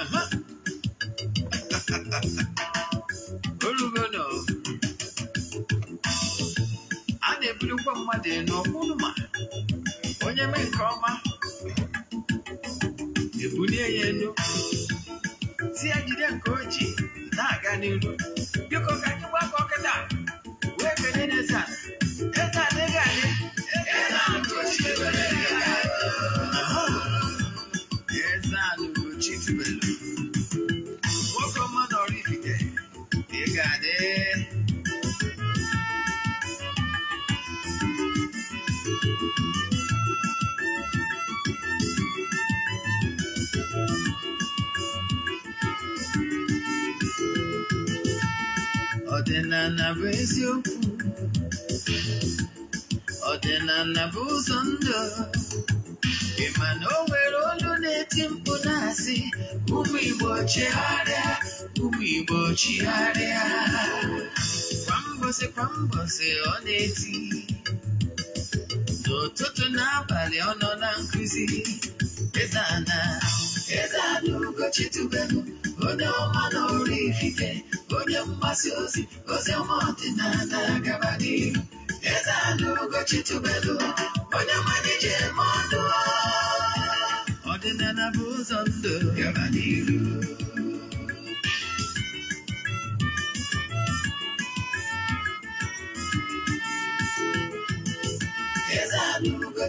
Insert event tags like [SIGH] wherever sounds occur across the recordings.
Uh-huh. olugona a na-ebulukwa mmadụ elu ọkpụnụma onye mee nke ọma ebulie ya elu si ya jide nke oji na-aga n'iru biko ka anyị gbakọ kịta wee kene na a eze adịghị adị praise you ọdịna then I never ndụ ịma na o nwere olu na-eti mkpu na-asị ụmụ Igbo chigharịa ụmụ Igbo chigharịa kwa mbọsị kwa mbọsị ọ na-eti n'ụtụtụ n'abalị ọ nọ na eti mkpu na asi umu igbo chigharia umu igbo chigharia kwa mbosi kwa mbosi o na eti nututu no na nkuzi Eze Ana Eze Ana Você é uma nourifique, você é uma suzy, você é gabadi. Essa luga titubelo, olha a mãe de modo. Ordinana buzondo, gabadiru. Essa luga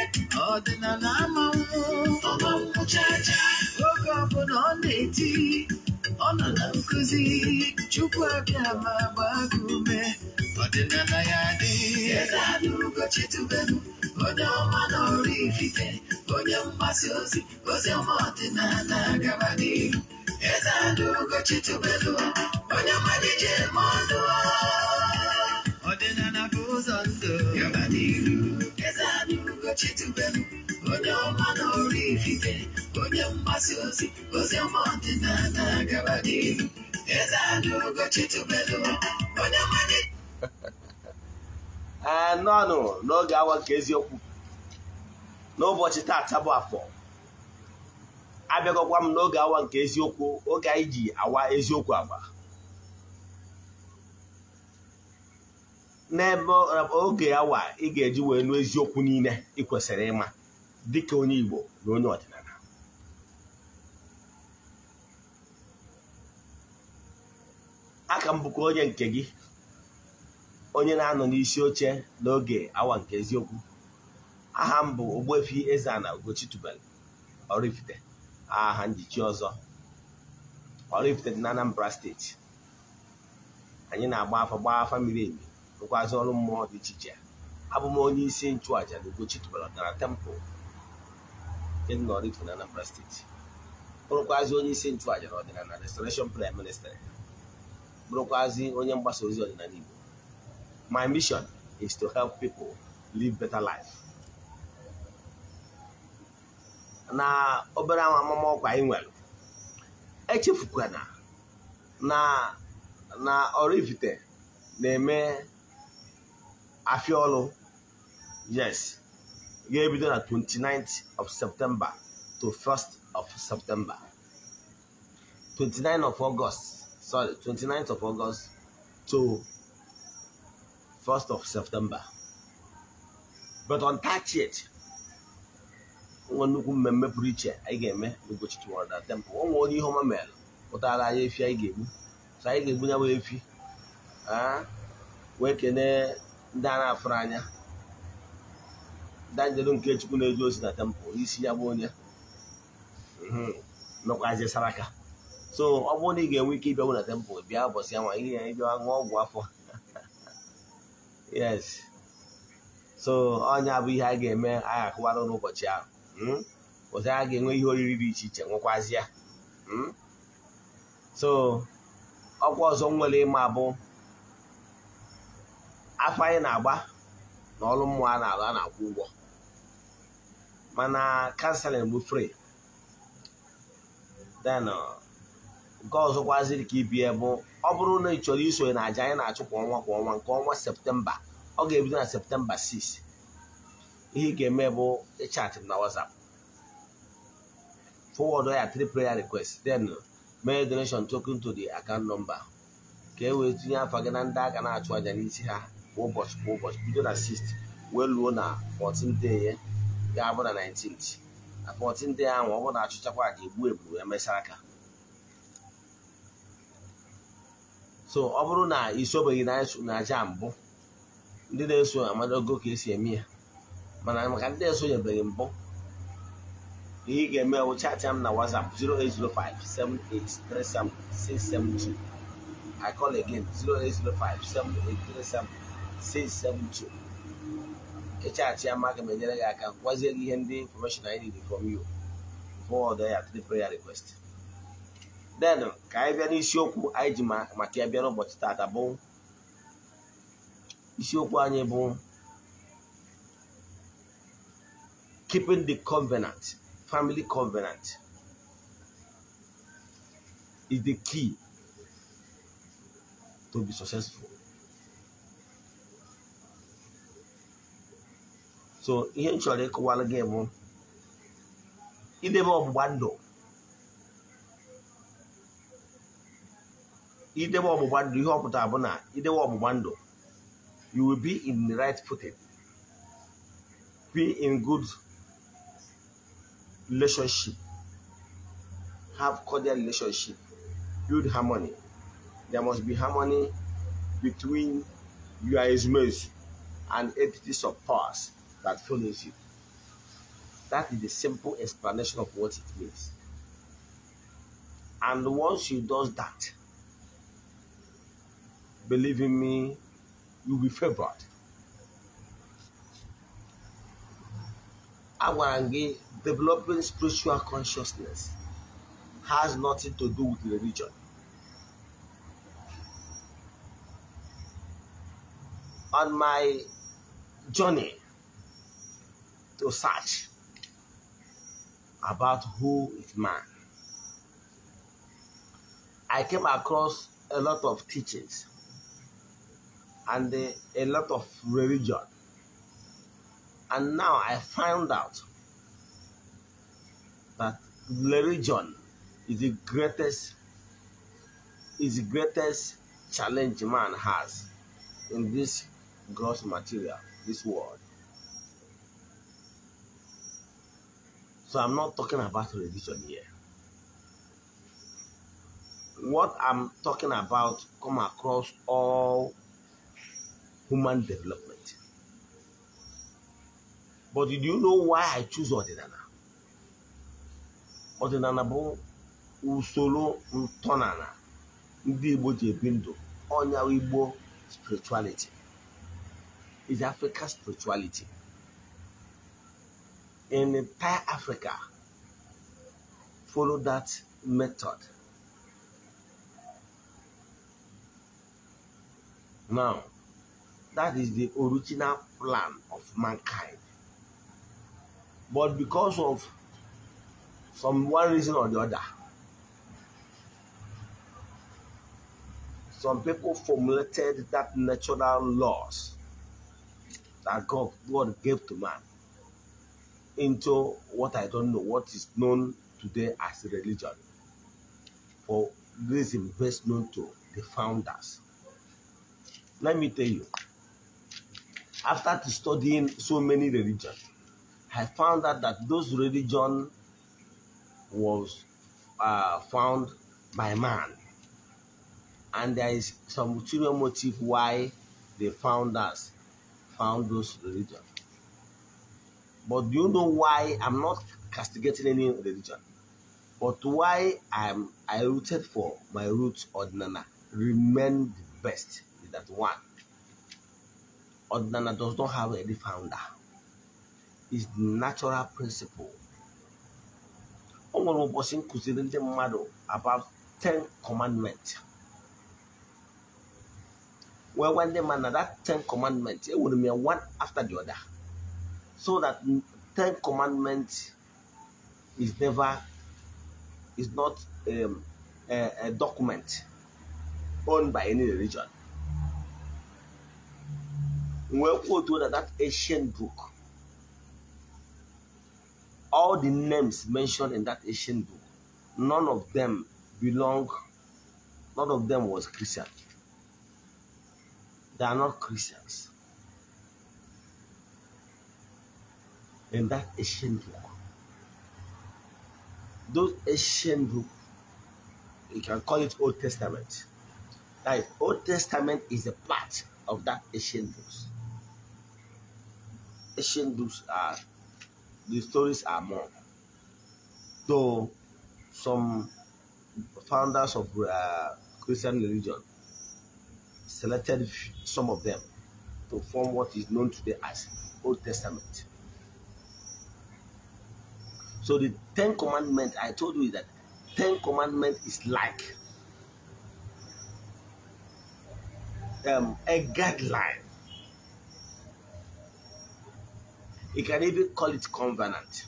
ọdịnala amanwụ oge ọbụla ọ na-eti ọ nọ na nkụzi chukwu abịa ma gbaa gị ume ọdịnala ya adịghị ezeanaugochi tubelu onye ọma na ọrụ ifite onye mgbasa ozi ozi ọma ọdịnala gaba n'ihu ezeanaugochi tubelu onye mmadụ ije ma ọdụ ọdịnala bụ ụzọ ndụ gaba n'ihu ọchịchị no no, onye ọma na ọrụ ifife onye mgbasa ozi ozi ọma ọdịnala na-agaba n'ihu eze ada ogochi tubelu onye awa nke eziokwu n'ebe oge awa ị ga-eji wee nụ eziokwu niile ị kwesịrị ịma dịka onye Igbo na onye ọdịnala aka m bụkwa onye nke gị onye na-anọ n'isi oche n'oge awa nke eziokwu aha m bụ Ogbuefi eze na Ugochitubelu Oraifite aha njichi ọzọ orifite dị na Anambra steeti anyị na-agba afa gbaa afa miri emi rụkwazị ọrụ mmụọ dị iche iche abụ m onye isi nchụàja na Ugochi tụbalatara tempụl dị Nọrifụ na Anambra steeti bụrụkwazị onye isi nchụàja na ọdịnala restoration prime minister bụrụkwazị onye mgbasa ozi ọdịnala Igbo my mission is to help people live better life na obere amamọkwa anyị nwere echefukwana na na Oraifite na-eme Afiolo. Yes. Year between the 29th of September to 1st of September. 29th of August. Sorry, 29th of August to 1st of September. But on 30th, it. I mmemme pụrụ iche anyị ga-eme n'ụbọchị tụwara temple ọ nwere onye ihe ọma mere pụtara anyị efi anyị ga-egbu so anyị ga-egbu ya bụ ndị a na-afụrụ anya danjelu nke chukwu na-eji ozi na tempụl isi ya bụ onye mhm. nọkwazie saraka so ọ bụrụ na ị ga-enwe ike ịbịanwu na tempụl bịa ụbọchị anwa ihe ya ịbịa ṅụọ ọgwụ afọ [LAUGHS] yes so ọnya bụ ihe a ga-eme agha akụwara n'ụbọchị ahụ mhm. ụzọ a ga-enwe ihe oriri dị iche iche nwekwazi ya mhm. so ọkwa ọzọ nwere ịma bụ afọ anyị na-agba na ọrụ mmụọ na ala a na-akwụ ụgwọ mana kanselin bụ fri den uh, nke ọzọkwaziri ka ibie bụ ọ bụrụ na ị chọrọ isonye na aja anyị na-achụ kwa ọnwa kwa ọnwa nke ọnwa septemba ọ ga-ebido na septemba 6 ihe ị ga-eme bụ ịchatị m na wasap forward ya three prayer request then uh, mee donation token to the account number ka e wee tinye afọ gị na ndị a na-achụ aja n'isi ha ụbọchị eh, ah, kwa ụbọchị bido eh, na 6 wee luo na 14 day ga-abụ na 19th na 14 day ahụ ọ bụ na achụchakwa ka egbu ebu emesịa aka so ọ bụrụ na isobeghị na aja mbụ ndị na-eso amadago ka esi eme ya mana maka ndị esonyebeghị mbụ ihe ị ga-eme bụ chaatị na WhatsApp 672 I call again 08057837672 672 HR Chiamaka ga m enyere gị aka gwazie gị ihe ndị information I need from you forward ya to the prayer request then ka anyị bịa n'isiokwu anyị ji a ya bịa n'ụbọchị tata bụ isiokwu anyị bụ keeping the covenant family covenant is the key to be successful so ihe m chọrọ ịkụwalụ gị bụ idebe ọgbụgba ndụ idebe ọgbụgba ndụ ihe ọpụta bụ na idebe ọgbụgba ndụ you will be in the right footed be in good relationship have cordial relationship build harmony there must be harmony between your ezumezu and entities of powers that you. That is the simple explanation of what it means. And once you do that, believe in me, you'll be favored. Awarangi, developing spiritual consciousness has nothing to do with religion. On my journey to search about who is man. I came across a lot of teachings and a lot of religion. And now I found out that religion is the greatest is the greatest challenge man has in this gross material, this world. So I'm not talking about religion here. What I'm talking about come across all human development. But do you know why I choose Odinana? Odinana bụ usoro ntọnala ndị Igbo ji ebi spirituality It's Africa spirituality in entire Africa follow that method. Now, that is the original plan of mankind. But because of some one reason or the other, some people formulated that natural laws that God, God gave to man into what I don't know, what is known today as religion, for reason best known to the founders. Let me tell you, after studying so many religions, I found out that those religion was uh, found by man. And there is some ulterior motive why the founders found those religions. But do you know why I'm not castigating any religion? But why I'm I rooted for my roots Ordinana remain the best in that one. Ordinana does not have any founder. It's the natural principle. O nwere ụbọchị nkụziri ndị mmadụ about ten commandments. Well, when ndị mmadụ that ten commandments it would mean one after the other so that 10 commandments is never is not um, a, a document owned by any religion We kwuo otu that that ancient book all the names mentioned in that ancient book none of them belong none of them was christian they are not christians in that ancient book, Those ancient book, you can call it Old Testament. That is, Old Testament is a part of that ancient books. Ancient books are the stories are more. Though some founders of uh, Christian religion selected some of them to form what is known today as Old Testament. So the Ten Commandment, I told you that Ten Commandment is like um, a guideline. You can even call it covenant.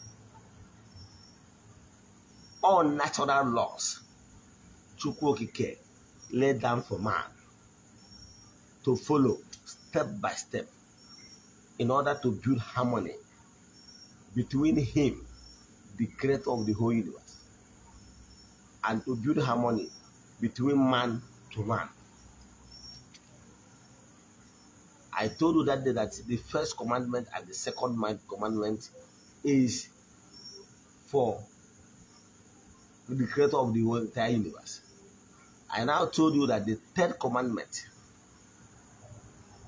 All natural laws, Chukwokike, laid down for man to follow step by step in order to build harmony between him the creator of the whole universe, and to build harmony between man to man. I told you that day that the first commandment and the second commandment is for the creator of the whole entire universe. I now told you that the third commandment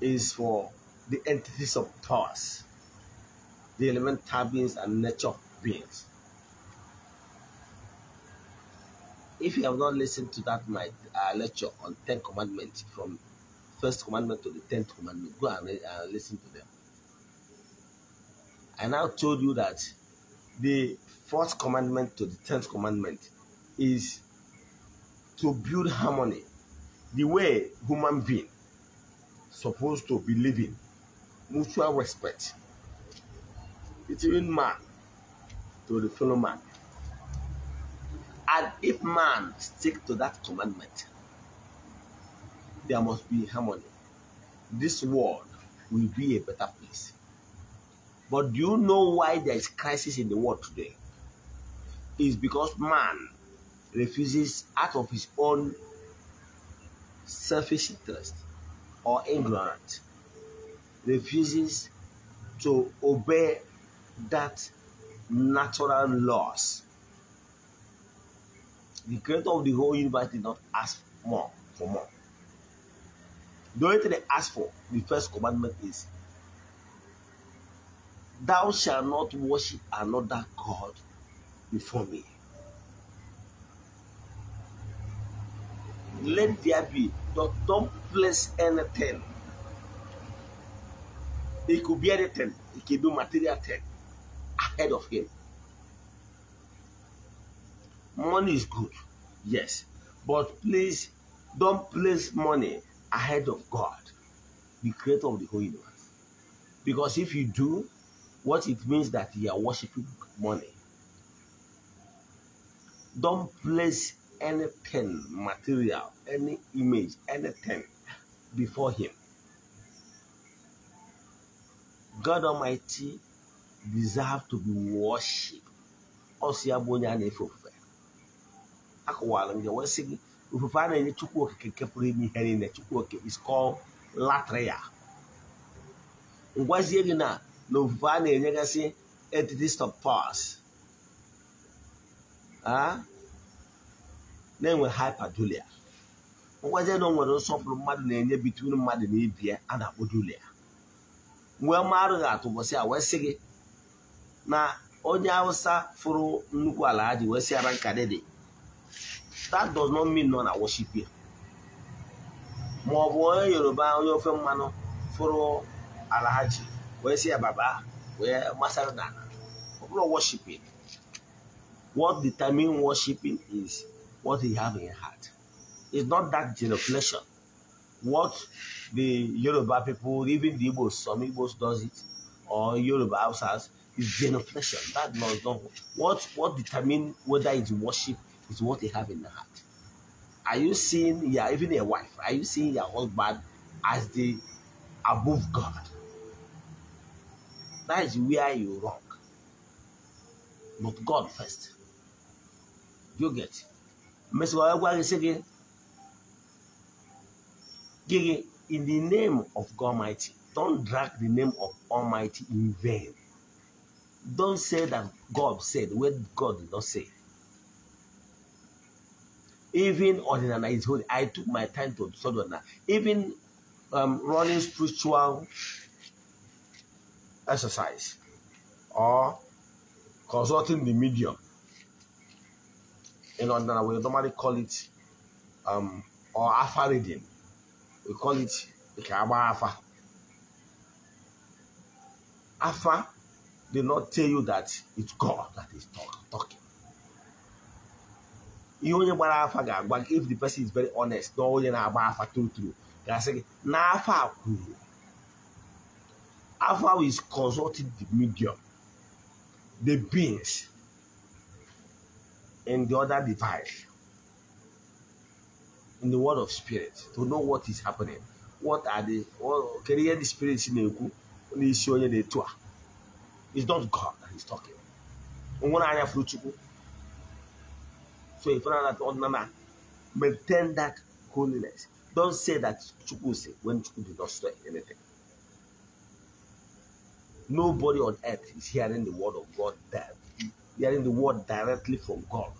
is for the entities of powers, the elemental beings and nature beings. If you have not listened to that my uh, lecture on Ten Commandments from First Commandment to the Tenth Commandment, go and uh, listen to them. I now told you that the Fourth Commandment to the Tenth Commandment is to build harmony, the way human being supposed to be living, mutual respect between man to the fellow man and if man stick to that commandment, there must be harmony. This world will be a better place. But do you know why there is crisis in the world today? It's because man refuses out of his own selfish interest or ignorance, refuses to obey that natural laws the creator of the whole universe did not ask more for more. The only thing they ask for, the first commandment is, Thou shalt not worship another God before me. Let there be, don't, don't place anything. It could be anything, it could be material thing ahead of Him money is good yes but please don't place money ahead of god the creator of the whole universe because if you do what it means that you are worshiping money don't place any pen material any image anything before him god almighty deserves to be worshipped akọwara m ya wee sị gị ofufe a na-enye chukwu okike nke pụrụ ime ihe niile chukwu okike is called latria ngwazie gị na na ofufe a na-enyegasị entities of powers na-enwe hyperdulia ngwazie na o nwere nsọpụrụ mmadụ na-enye bitun mmadụ na ibi a na-akpọ dulia wee marụ gị a wee sị gị na onye awụsa fụrụ nnukwu ala ha ji wee si ara nka dị dị that does not mean none are worship here ma ọ bụ onye yoruba onye ofe mmanụ fụrụ alahaji wee si ya baba Where masara na ala ọ worshiping what determine worshiping is what he have in heart it's not that genuflection what the yoruba people even the igbos some igbos does it or yoruba outsiders is genuflection that does not what what determine whether it's worship is what they have in their heart. Are you seeing yeah, even your wife? Are you seeing your husband as the above God? That is where you wrong. But God first. You get. Mr. Wagwari said, in the name of God Almighty, don't drag the name of Almighty in vain. Don't say that God said what God did not say even ordinary is holy. I took my time to sort of Even um, running spiritual exercise or consulting the medium. In ordinary, we normally call it um, or alpha reading. We call it Ikaba alpha. Alpha did not tell you that it's God that is talk, talking. You only gbara afa ga if the person is very honest na onye na-agba afa true true ga-asị Now, na after a kwuru is consulting the medium the beings and the other device in the world of spirit to know what is happening what are the kedu the spirits in the n'isi onye the tour? it's not God that is talking to a father that on mama. Maintain that holiness. Don't say that Chukwu say when Chukwu did not say anything. Nobody on earth is hearing the word of God there. Hearing the word directly from God.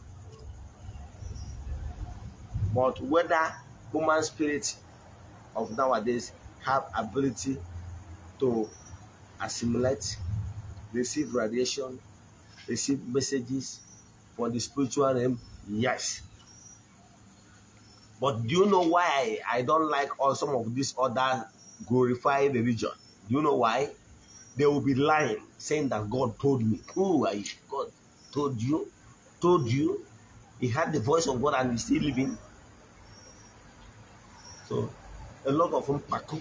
But whether human spirit of nowadays have ability to assimilate, receive radiation, receive messages for the spiritual realm Yes. But do you know why I don't like all some of these other glorifying religion? Do you know why? They will be lying, saying that God told me. Who are you? God told you, told you. He had the voice of God and he's still living. So a lot of them paku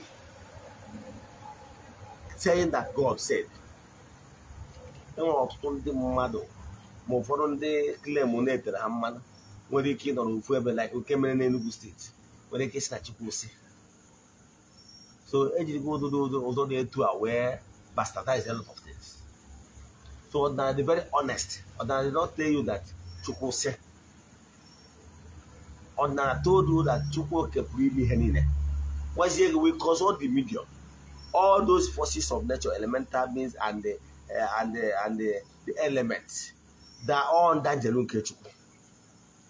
saying that God said. ma ụfọdụ ndị klem na-etere ha mmanụ nwere ike ịnọrọ ofu ebe like oke mere na Enugu steeti nwere ike isi na Chikwusi so ejirigo ụdụdụ ụzọ na-etu a wee bastardize a lot of things so ọdịnala dị very honest ọdịnala did not tell you that Chukwusi ọdịnala told you that Chukwuoke pụrụ ime ihe niile gwazie gị wee cause all the media all those forces of nature elemental beings and the, uh, and the, and the, the elements They are all under Jelun Kechukwu.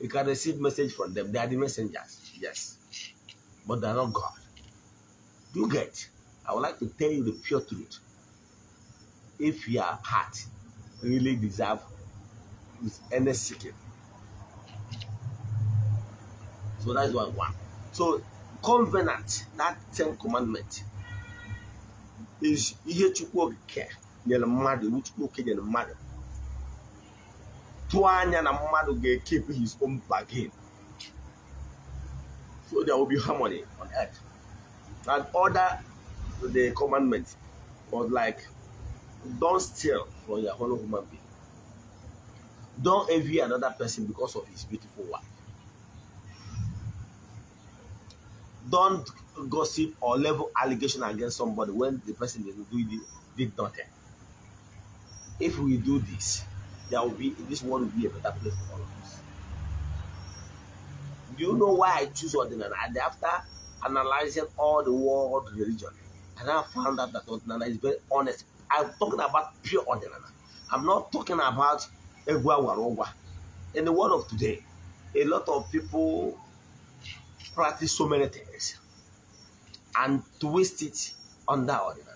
You can receive message from them. They are the messengers, yes. But they are not God. You get? I would like to tell you the pure truth. If your heart really deserve with any seeking. So that's why one. So covenant, that ten commandment, is here to ihe Chukwu are nyere mother, which Chukwu okike nyere mother. One atu anya na mmadụ keep his own bargain so there will be harmony on earth and order the commandment was like don't steal from your fellow human being don't envy another person because of his beautiful wife don't gossip or level allegation against somebody when the person did, did nothing if we do this there will be this world will be a better place for all of us. Do you know why I choose Ordinary? And after analyzing all the world religion, and I found out that Ordinary is very honest. I'm talking about pure Ordinary. I'm not talking about Egwa Warowa. In the world of today, a lot of people practice so many things and twist it under Ordinary.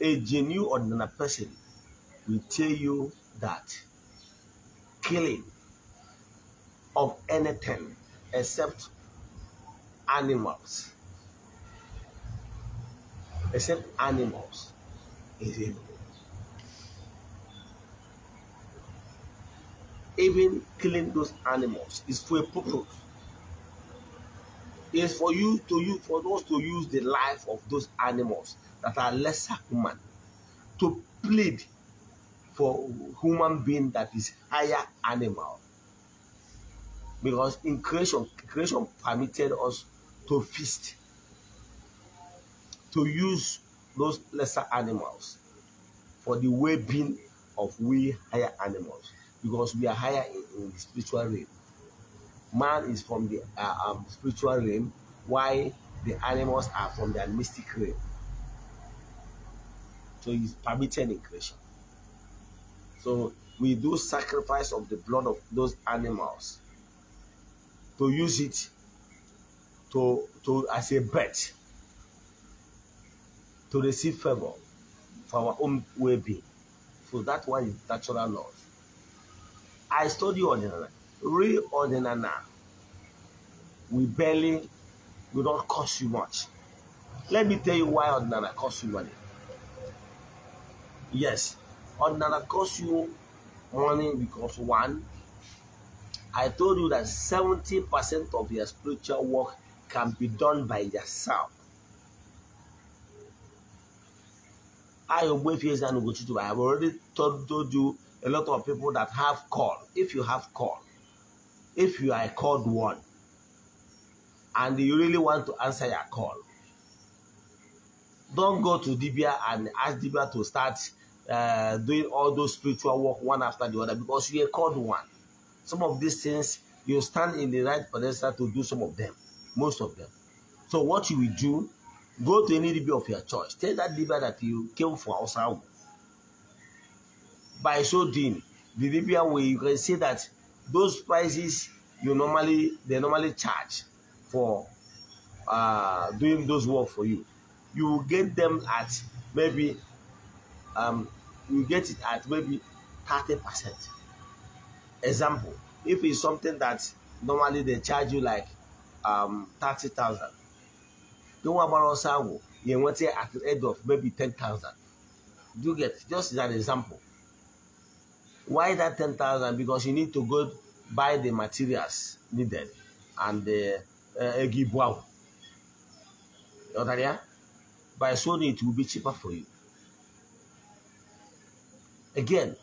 A genuine Ordinary person will tell you that killing of anything except animals, except animals, is evil. Even killing those animals is for a purpose. It's for you to use for those to use the life of those animals that are lesser human to plead for human being that is higher animal. Because in creation, creation permitted us to feast, to use those lesser animals for the well-being of we higher animals because we are higher in, in the spiritual realm. Man is from the uh, um, spiritual realm, while the animals are from the mystic realm. So it's permitted in creation. So we do sacrifice of the blood of those animals to use it to, to as a bet to receive favor for our own well-being. So that one is natural laws. I study ordinary, real ordinary now. We barely, we don't cost you much. Let me tell you why ordinary costs you money. Yes, another cost you money because one, I told you that 70% of your spiritual work can be done by yourself. I have already told, you a lot of people that have called. If you have called, if you are called one, and you really want to answer your call, don't go to Dibia and ask Dibia to start uh, doing all those spiritual work one after the other because you are called one. Some of these things, you stand in the right pedestal to do some of them, most of them. So what you will do, go to any DB of your choice. Tell that DB that you came for outside. By so doing, the DB way you can see that those prices you normally they normally charge for uh, doing those work for you. You will get them at maybe um, you get it at maybe 30%. Example, if it's something that normally they charge you like um, 30,000, don't worry about us, you want it at the end of maybe 10,000. Do you get just that an example. Why that 10,000? Because you need to go buy the materials needed and the uh, You understand? By soon it will be cheaper for you. Again,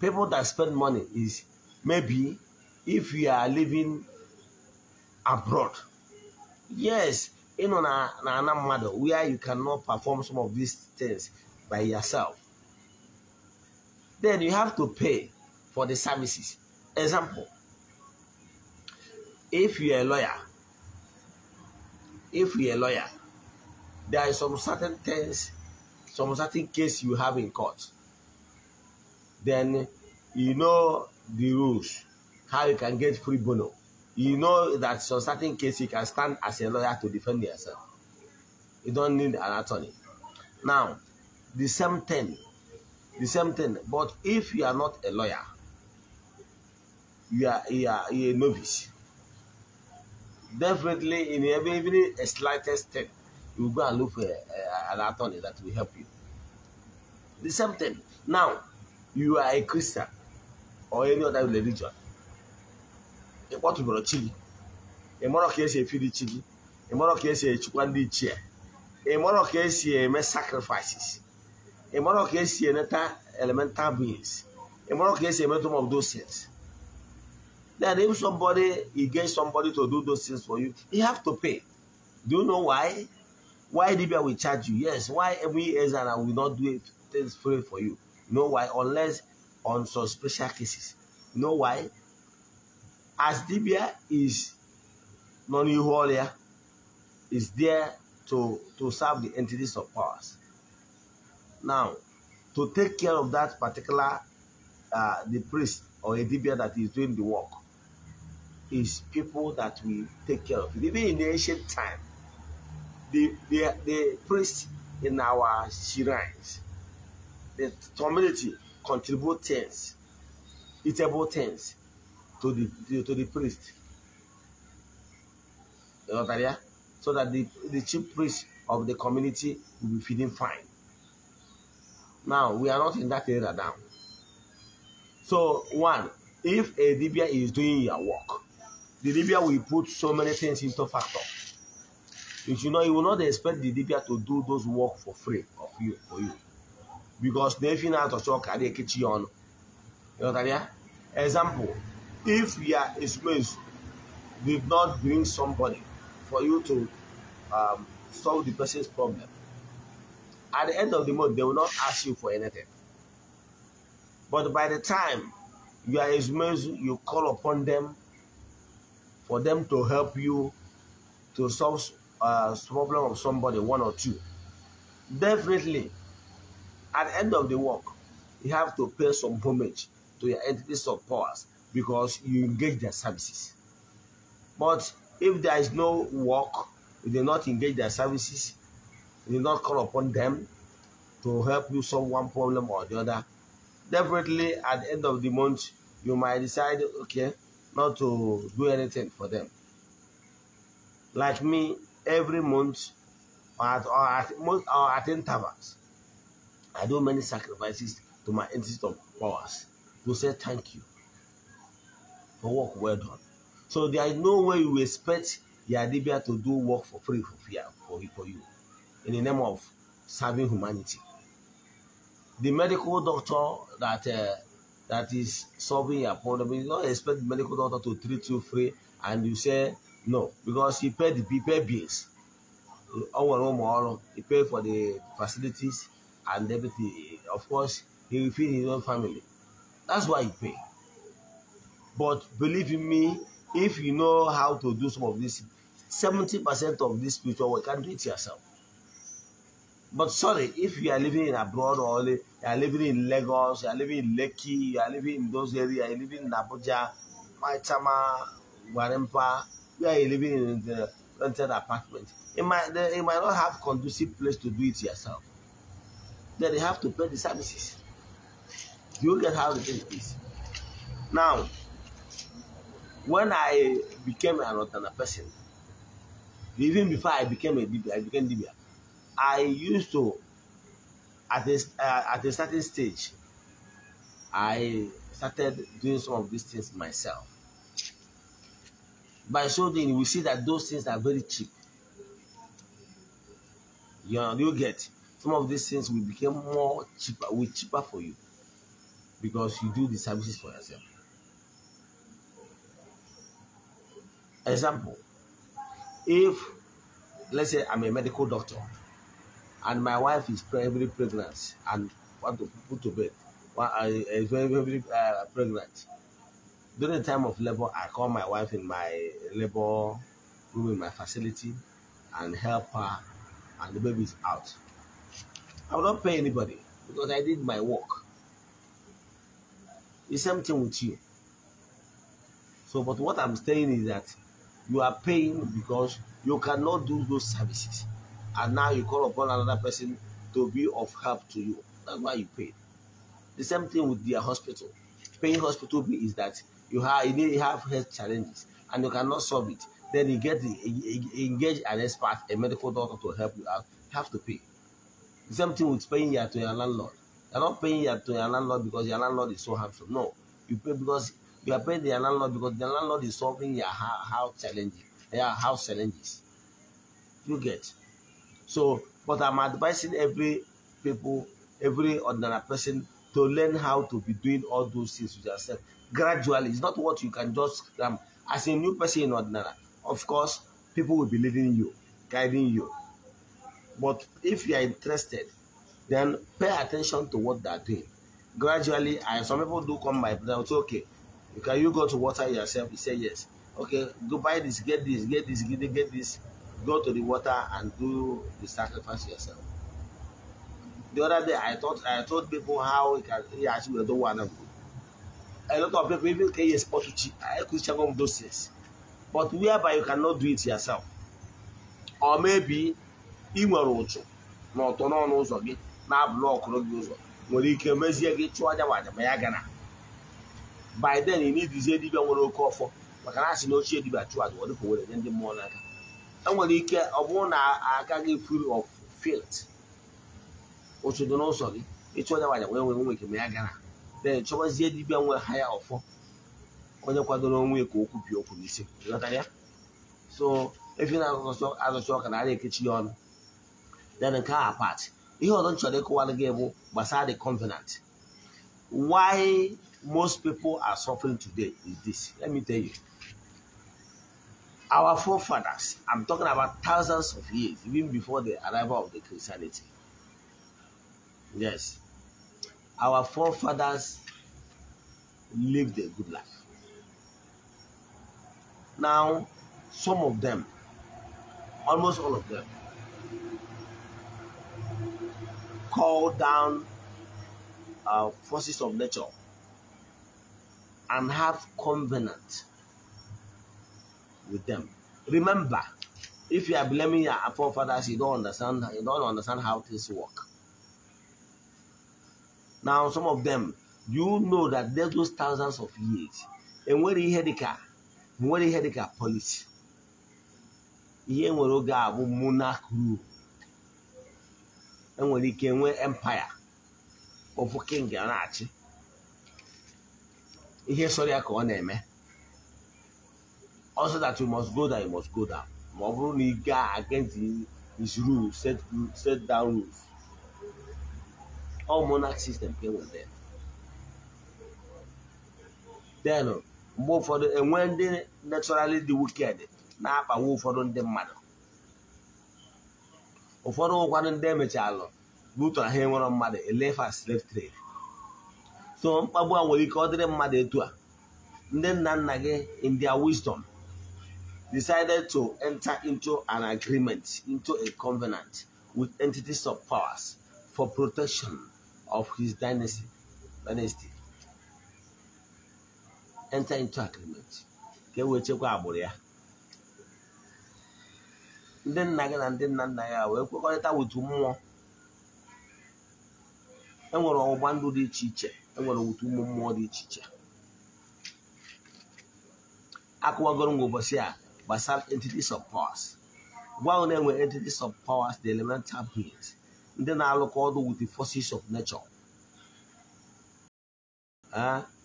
people that spend money is maybe if you are living abroad. Yes, you know, na, na, na matter where you cannot perform some of these things by yourself. Then you have to pay for the services. Example, if you are a lawyer, if you are a lawyer, there are some certain things, some certain case you have in court then you know the rules, how you can get free bono. You know that in certain case you can stand as a lawyer to defend yourself. You don't need an attorney. Now, the same thing, the same thing. But if you are not a lawyer, you are, you are, you are a novice. Definitely, in every, even a slightest step, you go and look for a, uh, a, an attorney that will help you. The same thing. Now, you are a Christian or any other religion, A kpọtụbụrụ chi gị ị mara ka esi efiri chi A ị is a esi echukwa ndị ichie ị mara ka esi eme sacrifices ị mara ka esi elemental beings ị mara ka esi emetụ of those things then if somebody get somebody to do those things for you you have to pay do you know why why Libya will charge you yes why every ezra will not do things free for you Know why? Unless on some special cases. Know why? As Libya is non-equal is there to, to serve the entities of powers. Now, to take care of that particular uh, the priest or a Libya that is doing the work is people that we take care of. Even in the ancient time, the, the, the priests in our shrines the community contribute things, eatable things to the to the priest. You know that, yeah? So that the, the chief priest of the community will be feeling fine. Now we are not in that area now. So one, if a Libya is doing your work, the Libya will put so many things into factor. If you know, you will not expect the Libya to do those work for free of you for you because they efi na-atọcha ọka na ekechi ya ọnụ ịghọtara example if a ezumezu did not bring somebody for you to um, solve the person's problem at the end of the month they will not ask you for anything but by the time you are ezumezu you call upon them for them to help you to solve a uh, problem of somebody one or two definitely at the end of the work, you have to pay some homage to your entities of powers because you engage their services. But if there is no work, you do not engage their services, you do not call upon them to help you solve one problem or the other, definitely at the end of the month, you might decide, okay, not to do anything for them. Like me, every month, or at, or at, or at intervals, I do many sacrifices to my entity of powers You say thank you for work well done. So there is no way you expect Yadibia to do work for free for fear for, for you in the name of serving humanity. The medical doctor that uh, that is solving your problem, you don't expect the medical doctor to treat you free and you say no because he paid the he paid bills. He paid for the facilities, and everything. Of course, he will feed his own family. That's why he pay. But believe in me, if you know how to do some of this, 70% of this future, work, you can do it yourself. But sorry, if you are living in abroad or you are living in Lagos, you are living in Lekki, you are living in those areas, you are living in Abuja, Maitama, Warempa, you are living in the rented apartment. it might, you might not have conducive place to do it yourself. That they have to pay the services. You get how the thing is. Now, when I became an alternate person, even before I became a DBA, I became DB, I used to, at a, uh, at a certain stage, I started doing some of these things myself. By so doing, we see that those things are very cheap. You know, you get some of these things will become more cheaper, will cheaper for you because you do the services for yourself. Example, if let's say I'm a medical doctor and my wife is very pregnant and want to put to bed, is very, very uh, pregnant. During the time of labor, I call my wife in my labor room in my facility and help her, and the baby is out. I will not pay anybody because I did my work. The same thing with you. So, but what I'm saying is that you are paying because you cannot do those services. And now you call upon another person to be of help to you. That's why you pay. The same thing with their hospital. Paying hospital bill is that you have you have health challenges and you cannot solve it. Then you get the, engage an expert, a medical doctor to help you out. You have to pay. Same thing with paying here to your landlord. You're not paying here to your landlord because your landlord is so handsome. No, you pay because you are paying the landlord because the landlord is solving your house challenges. your house challenges. You get. So, but I'm advising every people, every ordinary person to learn how to be doing all those things with yourself gradually. It's not what you can just um, as a new person in ordinary. Of course, people will be leading you, guiding you, but if you are interested, then pay attention to what they are doing. Gradually, I, some people do come by, they'll say, okay, can you go to water yourself? You say yes. Okay, go buy this, get this, get this, get this, get this. Go to the water and do the sacrifice yourself. The other day, I thought I told people how you can yeah, actually do one of A lot of people even can export to I could check on those things, but whereby you cannot do it yourself, or maybe ị nwere ụchụ na ọtọ n'ọnụ ụzọ gị na-abụlụ ọkụrụ gị ụzọ nwere ike mezie gị chụọ aja waja ma ya gana by then ị nwere oke ọfọ maka na asị na ochie dibịa chụọ aja ọdịka were nye ndị mmụọ n'aka enwere ike ọ bụrụ na agaghị free of filt. ụchụ dị n'ụzọ gị ịchụ aja waja wee nwere onwe gị ma ya gara then chọbazie dibia nwe ha ya ọfọ onye kwadoro onwe ka okwu bi okwu n'isi so efi na azụcha ọka na a ekechi ya ọnụ then nke car apart ihe not nchọrọ ịkụwara gị bụ gbasara the covenant why most people are suffering today is this let me tell you our forefathers i'm talking about thousands of years even before the arrival of the christianity yes our forefathers lived a good life now some of them almost all of them call down uh, forces of nature and have covenant with them. Remember, if you are blaming your forefathers, you don't understand. You don't understand how things work. Now, some of them, you know that there's those thousands of years. And where he had the car, where he had the car, police. He ain't where he got monarch rule. enwere ike nwee empaya ofu king a na-achị ihe sọrọ ya ka ọ na-eme also that you must go down you must go down ma ọ bụrụ na ị gaa against his rules set, set down rules all monarch system ka enwere then mgbe ụfọdụ enwee ndị naturally dị wicked na-akpagbu ụfọdụ ndị mmadụ ụfọdụ ndị butu mmadụ elefa slave trade so mkpagbu a nwere ike ọ dịrị mmadụ etu a ndị nna nna gị in their wisdom decided to enter into an agreement into a covenant with entities of powers for protection of his dynasty dynasty enter into agreement ka e wee chekwa agbụrụ ya ndị nna gị na ndị nna nna ya wee kwekọrịta otu mmụọ enwere ọgbụgba ndụ dị iche iche enwere otu ụmụ mmụọ dị iche iche akụwagoro m ụbọchị a gbasara entities of powers gwa na enwe entities of powers the elemental beings ndị na-alụkọ ọdụ with the forces of nature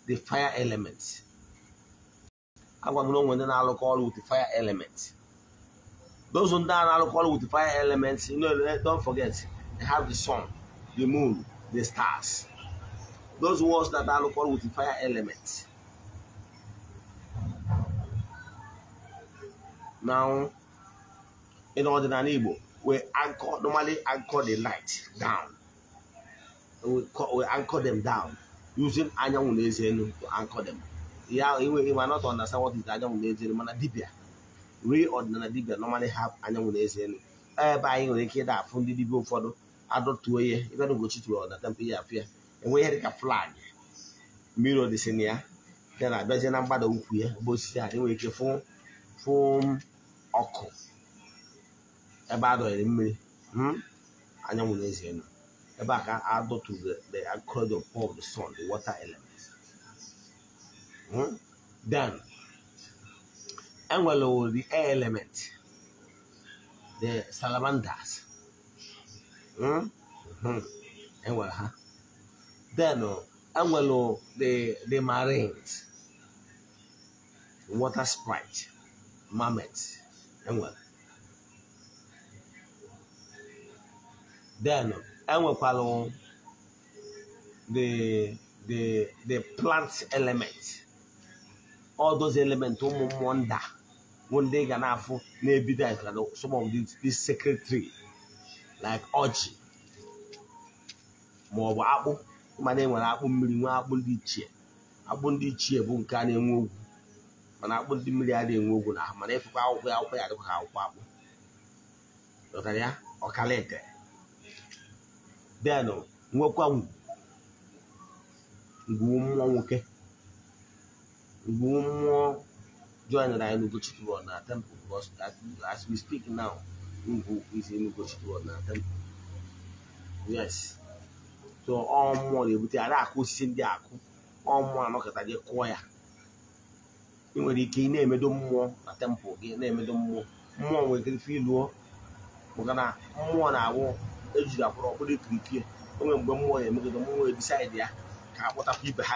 the fire element agwa m na onwe ndị na-alụkọ ọrụ with the fire element Those that are alcohol with the fire elements, you know, eh, don't forget, they have the sun, the moon, the stars. Those ones that are alcohol with the fire elements. Now, in order to enable, we anchor, normally anchor the light down. We, we anchor them down using anyanwụ na to anchor them. Yeah, you, you might not understand what is anyanwụ na eze enu, mana real ọdịnala dibia normally have anyanwụ na eze elu ebe anyị nwere ike ịda afụ ndị dibia ụfọdụ adọtuo ihe ịbịa n'ugochi tuo ọdata mpe ya afụ ya enwe ihe dịka flag mmiri odisi na ya nke na-abịaje na mgbada ukwu ya bụ osisi a enwere ike fụ fụ ọkụ ebe a mmiri hmm, anyanwụ na eze elu ebe a ka adọtu the agriculture of the sun the water element then hmm, Angular will be air element. The salamanders. Mm? hmm, hmm. Angular, huh? Then uh, the, the marines. Water sprite. marmets. Angular. Then uh, Angular, the, the, the plant element. ọdụzi those ụmụ mmụọ nda bụ ndị ga na-afụ na-ebido like some of these maọbụ like ọjị ma ọ bụ akpụ mana e nwere akpụ mmiri nwee akpụ ndị ichie akpụ ndị ichie bụ nke a na-enwe ogwu mana akpụ ndị mmiri a na-enwe ogwu na mana ịfụkwa akwụkwọ ya akwụkwọ ya dịkwa ka akwụkwọ akpụ dọtara ya ọkalete denụ nwekwa ngwu mmụọ nwoke more mmụọ joined anyị n'Ugochukwu World na temple because as we speak now Ngwu is in Ugochukwu World temple yes so ọ mmụọ na-ebute ada akụ osisi ndị akụ ọ mmụọ anọkọta gị kụọ ya ị nwere ike ị na-emedo mmụọ na tempụl gị na-emedo mmụọ mmụọ nwere ike ife iluo maka na mmụọ na-awụ ejiri akwụrụ ọkpụrụ ikirikiri o nwere mgbe mmụọ na-emegodo mmụọ ebisaịdị ya ka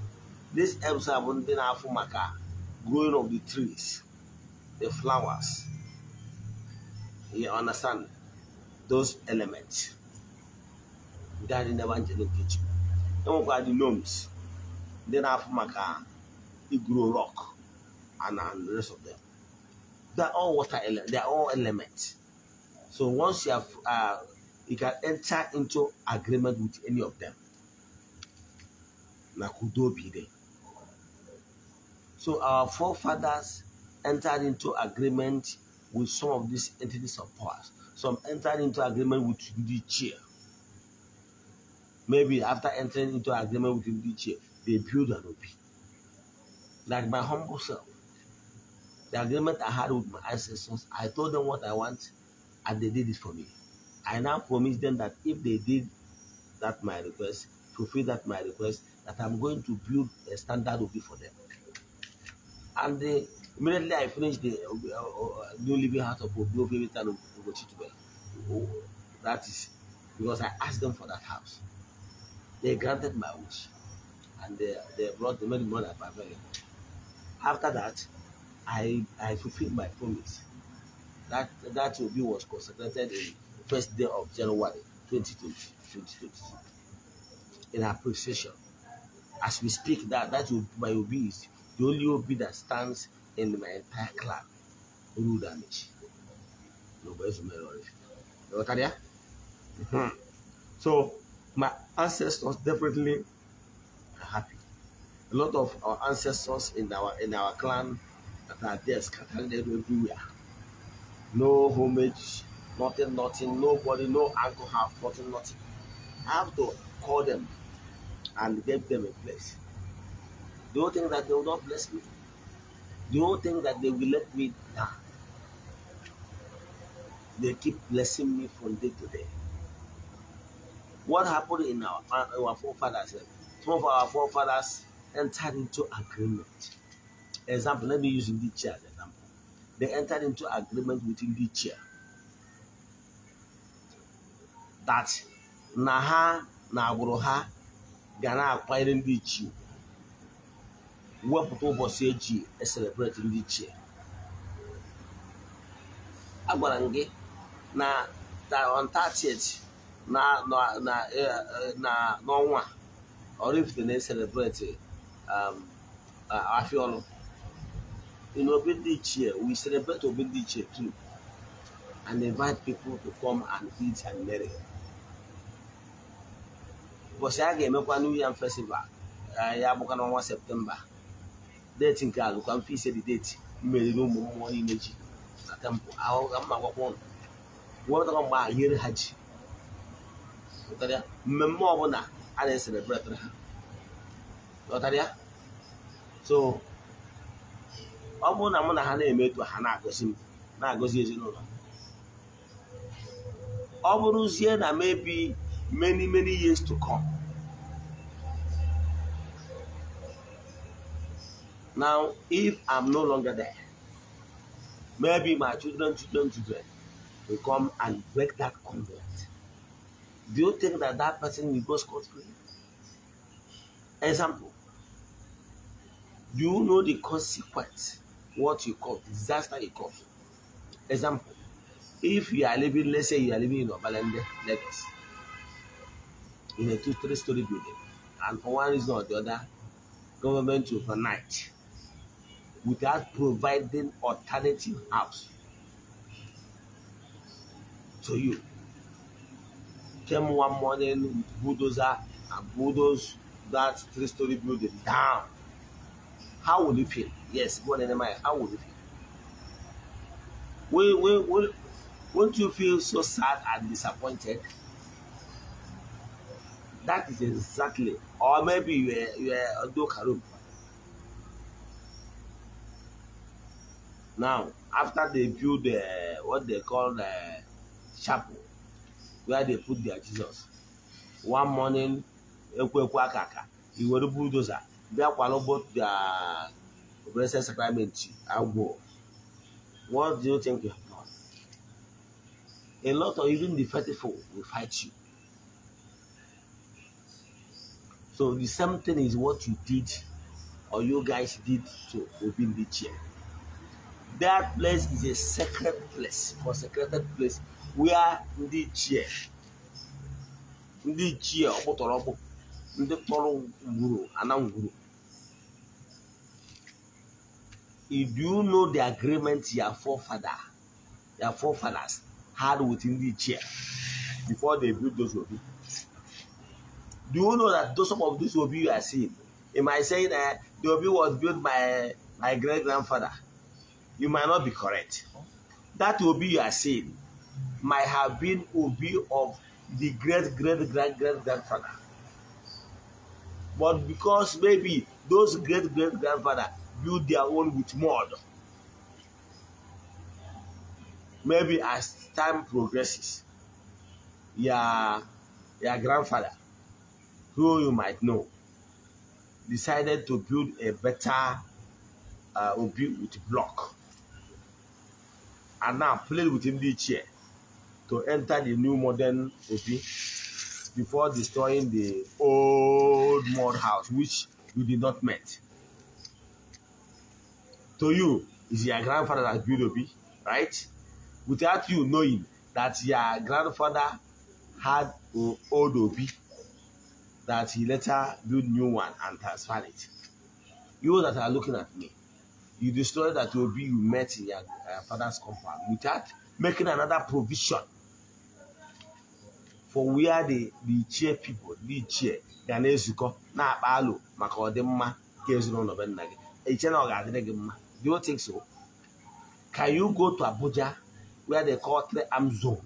This helps abundant afumaka, growing of the trees, the flowers. You understand those elements that in the evangelical kitchen. Then we the gnomes. Then afumaka, it grow rock, and, and the rest of them. They're all water elements. They're all elements. So once you have, uh, you can enter into agreement with any of them. Na kudo be there. So our forefathers entered into agreement with some of these entities of powers. Some entered into agreement with the chair. Maybe after entering into agreement with the chair, they build an OP. Like my humble self. The agreement I had with my ancestors, I told them what I want and they did it for me. I now promise them that if they did that my request, fulfill that my request, that I'm going to build a standard OP for them. And immediately I finished the uh, uh, uh, New Living Heart of Obiobebe Town of That is because I asked them for that house. They granted my wish. And they, they brought the money money After that, I, I fulfilled my promise. That, that Obi was consecrated the first day of January 2020. 2020 in appreciation. As we speak, that that my will be the only OB that stands in my entire club, rule damage. Nobody's memory. You know hmm. So my ancestors definitely are happy. A lot of our ancestors in our in our clan that are there scattered everywhere. No homage, nothing, nothing, nobody, no have nothing, nothing. I have to call them and give them a place. Do you think that they will not bless me? Do you think that they will let me die? They keep blessing me from day to day. What happened in our, our forefathers? Some of our forefathers entered into agreement. Example, let me use Lydia as example. They entered into agreement with Lydia that Naha ha na agbụrụ ha ga na wepụta ụbọchị eji eselebreti ndị iche agwara m gị na on 30th eh, eh, n'ọnwa Oraifite na-eselebreti um, Afiolu in obi dị iche we celebrate obi dị ichie too and invite people to come and eat and marry ụbọchị a ga-emekwa New Yam Festival eh, ya bụkwa n'ọnwa septemba deeti nke alụ ka mfe ise dị deeti mmeriri ụmụ mmụọ niile ji na tempụ ahụ ka mma gwakwa ụnụ nwetakwa mgbe ahịrị ha ji mmemme ọbụla a na-eselebretịrị esere ha ghọtara so ọ bụrụ na mụ na ha na-eme ha na-agọzi m na-agọzi ezinụlọ ọ bụrụzie na mebi many many years to come Now, if I'm no longer there, maybe my children, children, children will come and break that covenant. Do you think that that person will go scot free? Example. Do you know the consequence? What you call disaster you call. Example. If you are living, let's say you are living in Obalende, Lagos, in a two, three story building, and for one reason or the other, government will night without providing alternative house to you. Came one morning, bulldozer and bulldoze that three-story building down. How would you feel? Yes, go on Nehemiah, how would you feel? Will, will, will, won't you feel so sad and disappointed? That is exactly, or maybe you are you are a dokarum. Now, after they build the, what they call the chapel, where they put their Jesus, one morning, Ekwekwakaka, he were the bulldozer. They are both the blessed sacrament and go. What do you think you have done? A lot of even the faithful will fight you. So the same thing is what you did or you guys did to open the chair. That place is a sacred place, consecrated place, are ndị ichie ndị ichie ọkpụtọrọ ọkpụ ndị tọrọ ngwuru ana ngwuru do you know the agreement your forefather your forefathers had with ndị chair before they built those obi do you know that those some of these obi you are seeing am i saying that the obi was built by my great grandfather you might not be correct. That will be your seeing might have been be of the great, great, great, great grandfather. But because maybe those great, great grandfather built their own with mud, maybe as time progresses, your, your grandfather, who you might know, decided to build a better uh, Obi with block. And now playing with him this year to enter the new modern OP before destroying the old mud house which you did not meet. To you, is your grandfather that built OP, right? Without you knowing that your grandfather had an old OP that he later built new one and transferred it. You that are looking at me, you the that will be you met in your uh, father's compound without making another provision for where the the chair people the chair ga na-ezukọ Now, akpa alụ maka ọdịmma nke ezinụlọ be nna gị eche na ọ ga-adịrị gị do you think so can you go to Abuja where they call three arm zone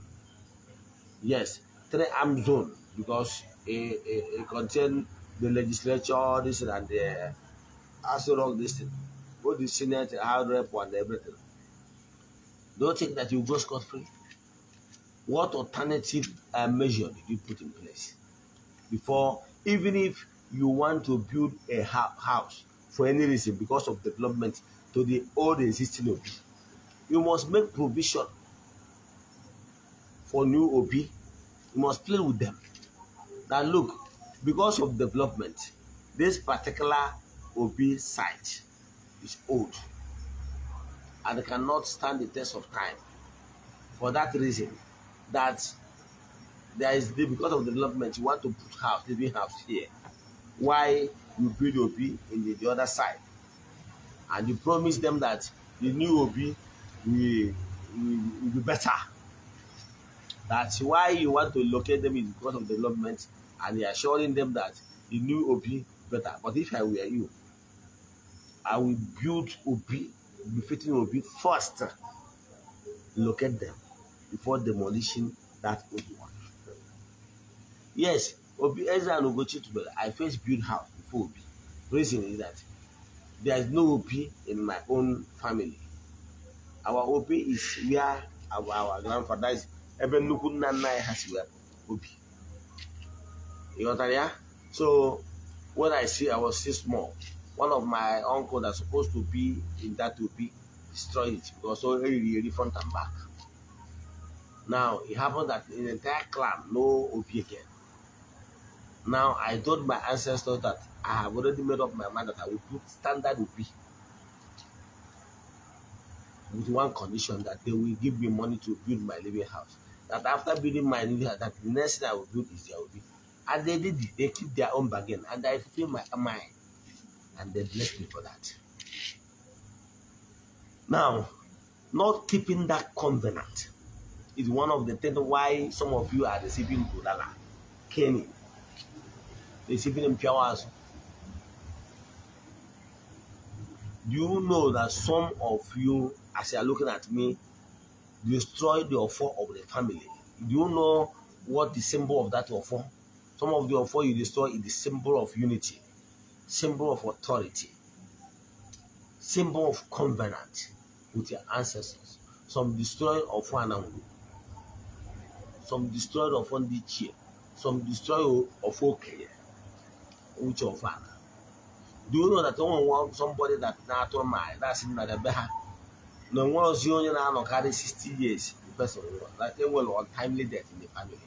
yes three arm zone because it, it, it contain the legislature this and the as long this thing both the Senate, hard rep, and everything. Don't think that you go scot free. What alternative uh, measure did you put in place before, even if you want to build a house for any reason because of development to the old existing OB, you must make provision for new OB. You must play with them. That look, because of development, this particular OB site is old and cannot stand the test of time. For that reason, that there is the, because of the development, you want to put house, living house here. Why you build OB in the, the other side? And you promise them that the new OB will, will, will be better. That's why you want to locate them in because of development, and you're assuring them that the new OB better. But if I were you, I will build Obi, befitting Obi first. Locate them before demolishing that old one. Yes, Obi Ezra and Ogochi together. I first build house before Obi. Reason is that there is no Obi in my own family. Our Obi is where our, our grandfather is. Even Nukunana has nna anyị Obi. So when I see I was still small one of my uncle that's supposed to be in that to be destroyed it because so really, really front and back. Now it happened that in the entire clan, no OP again. Now I told my ancestors that I have already made up my mind that I will put standard OP with one condition that they will give me money to build my living house. That after building my living house, that the next thing I will build is their OP. And they did it, they keep their own bargain, and I fulfill my mind. And they blessed me for that. Now, not keeping that covenant is one of the things why some of you are receiving Budala, Kenny, receiving Mpiawasu. Do you know that some of you, as you are looking at me, destroyed the offer of the family? Do you know what the symbol of that offer? Some of the offer you destroy is the symbol of unity symbol of authority, symbol of covenant with your ancestors. Some destroyed of one some destroyed of one some destroyed of okay, which of father. Do you know that no one wants somebody that not on my that's in the behind? No one was only now carry 60 years. The person that they will untimely death in the family.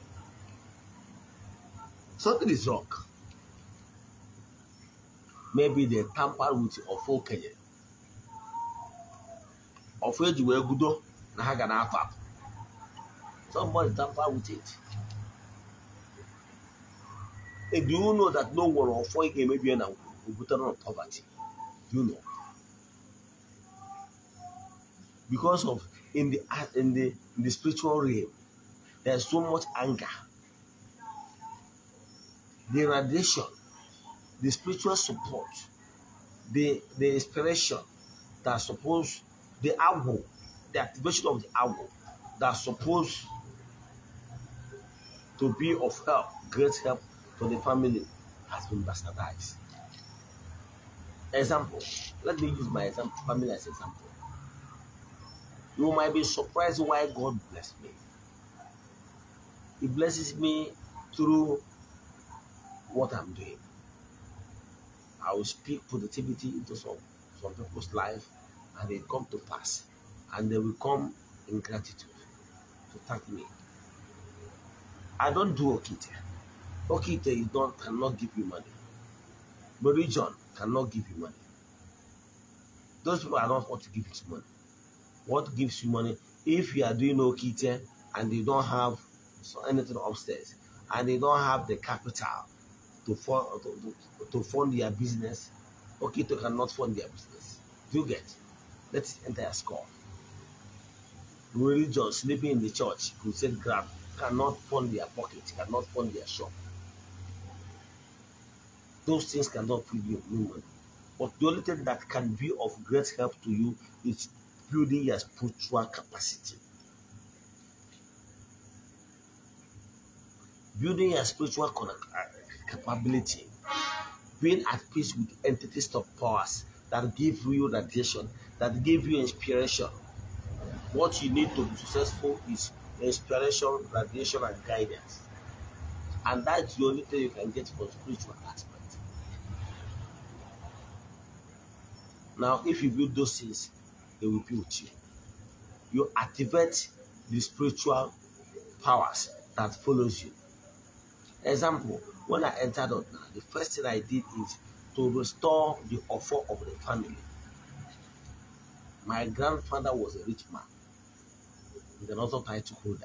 Something is wrong maybe they tamper with ọfọ okenye ọfọ eji wee gudo na ha ga na-apụ somebody tamper with it do you know that no one nwere ọfọ ị in a obutere na poverty do you know because of in the in the in the spiritual realm there's so much anger the radiation the spiritual support, the, the inspiration that supposed, the arrow, the activation of the arrow that supposed to be of help, great help for the family has been bastardized. Example, let me use my example, family as example. You might be surprised why God blessed me. He blesses me through what I'm doing. I will speak positivity into some, some people's life and they come to pass. And they will come in gratitude to thank me. I don't do Okite. Okite is not, cannot give you money. Religion cannot give you money. Those people are not what to give you money. What gives you money? If you are doing Okite and you don't have so anything upstairs and they don't have the capital to fund to, to, to fund their business, Okito cannot fund their business. You get? Let us enter a score. Religion sleeping in the church, crusade grab cannot fund their pocket, cannot fund their shop. Those things cannot feed you no money. But the only thing that can be of great help to you is building your spiritual capacity. Building your spiritual connect, capability, being at peace with entities of powers that give you radiation, that give you inspiration. What you need to be successful is inspiration, radiation, and guidance. And that's the only thing you can get from spiritual aspect. Now, if you build those things, they will be with you. You activate the spiritual powers that follows you. Example, when I entered Otna, the first thing I did is to restore the offer of the family. My grandfather was a rich man. He's an author title holder.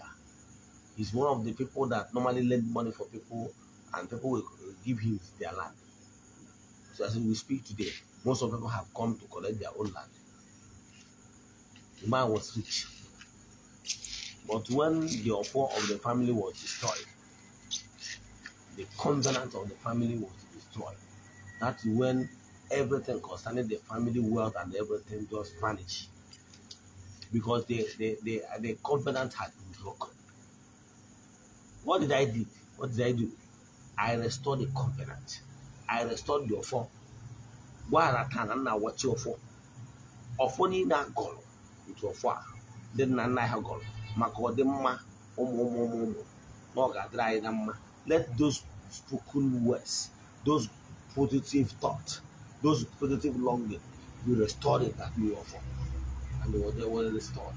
He's one of the people that normally lend money for people and people will give him their land. So as we speak today, most of people have come to collect their own land. The man was rich. But when the offer of the family was destroyed, the covenant of the family was destroyed. That's when everything concerning the family wealth and everything just vanished. Because the, the, the, the covenant had been broken. What did I do? What did I do? I restored the covenant. I restored the offer. Gwarata na nna wọchi ọfọ. Ọfọ niile agọrọ nke ọfọ a ndị nna nna ha gọrọ maka ọdịmma ụmụ ụmụ ụmụ ụmụ na o let those spoken words, those positive thoughts, those positive longing be restored in that new offer. And they were restored.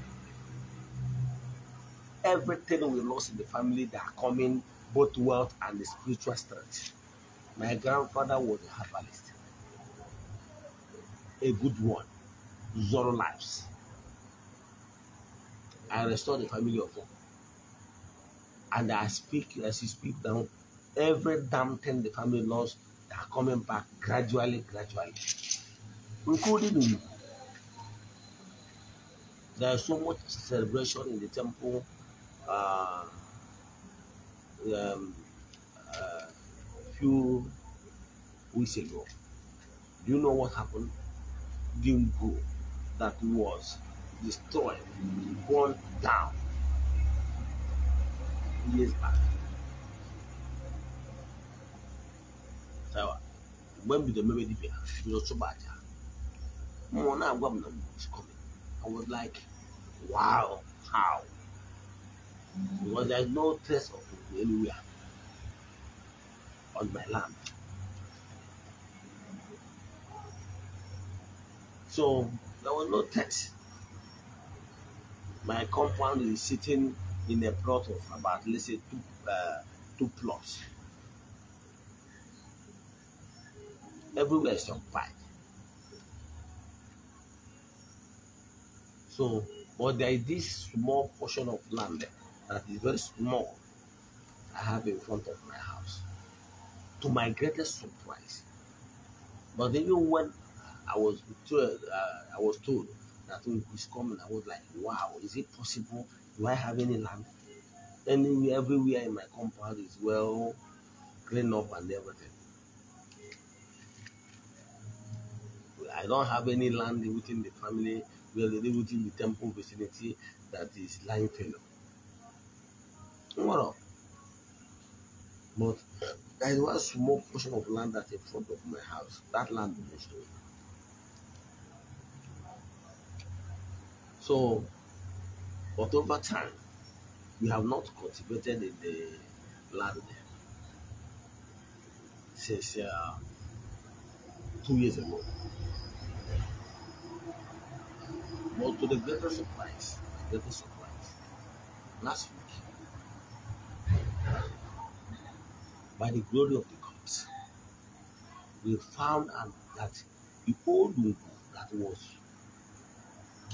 Everything we lost in the family that are coming, both wealth and the spiritual strength. My grandfather was a herbalist, a good one, Zoro Lives. I restored the family of hope. And I speak as you speak down every damn thing the family lost They are coming back gradually, gradually, including you. There is so much celebration in the temple. Uh, um, uh, few weeks ago. Do you know what happened? Dimbu that was destroyed, gone down years back. Sawa. When the memory dipia, it was so bad. More now, governor was coming. I was like, wow, how? Because there's no trace of it anywhere on my land. So there was no trace. My compound is sitting in a plot of about, let's say, two, uh, two plots. Everywhere is occupied. So, but there is this small portion of land that is very small I have in front of my house. To my greatest surprise, but even when I was told, uh, I was told that Uncle oh, was coming, I was like, wow, is it possible do I have any land? Anywhere, everywhere in my compound is well cleaned up and everything. I don't have any land within the family, within the temple vicinity that is lying fallow. What up? But there is one small portion of land that's in front of my house. That land belongs to me. So but over time, we have not cultivated in the land since uh, two years ago. But to the greater surprise, the surprise, last week, by the glory of the gods, we found out that the old Ugu that was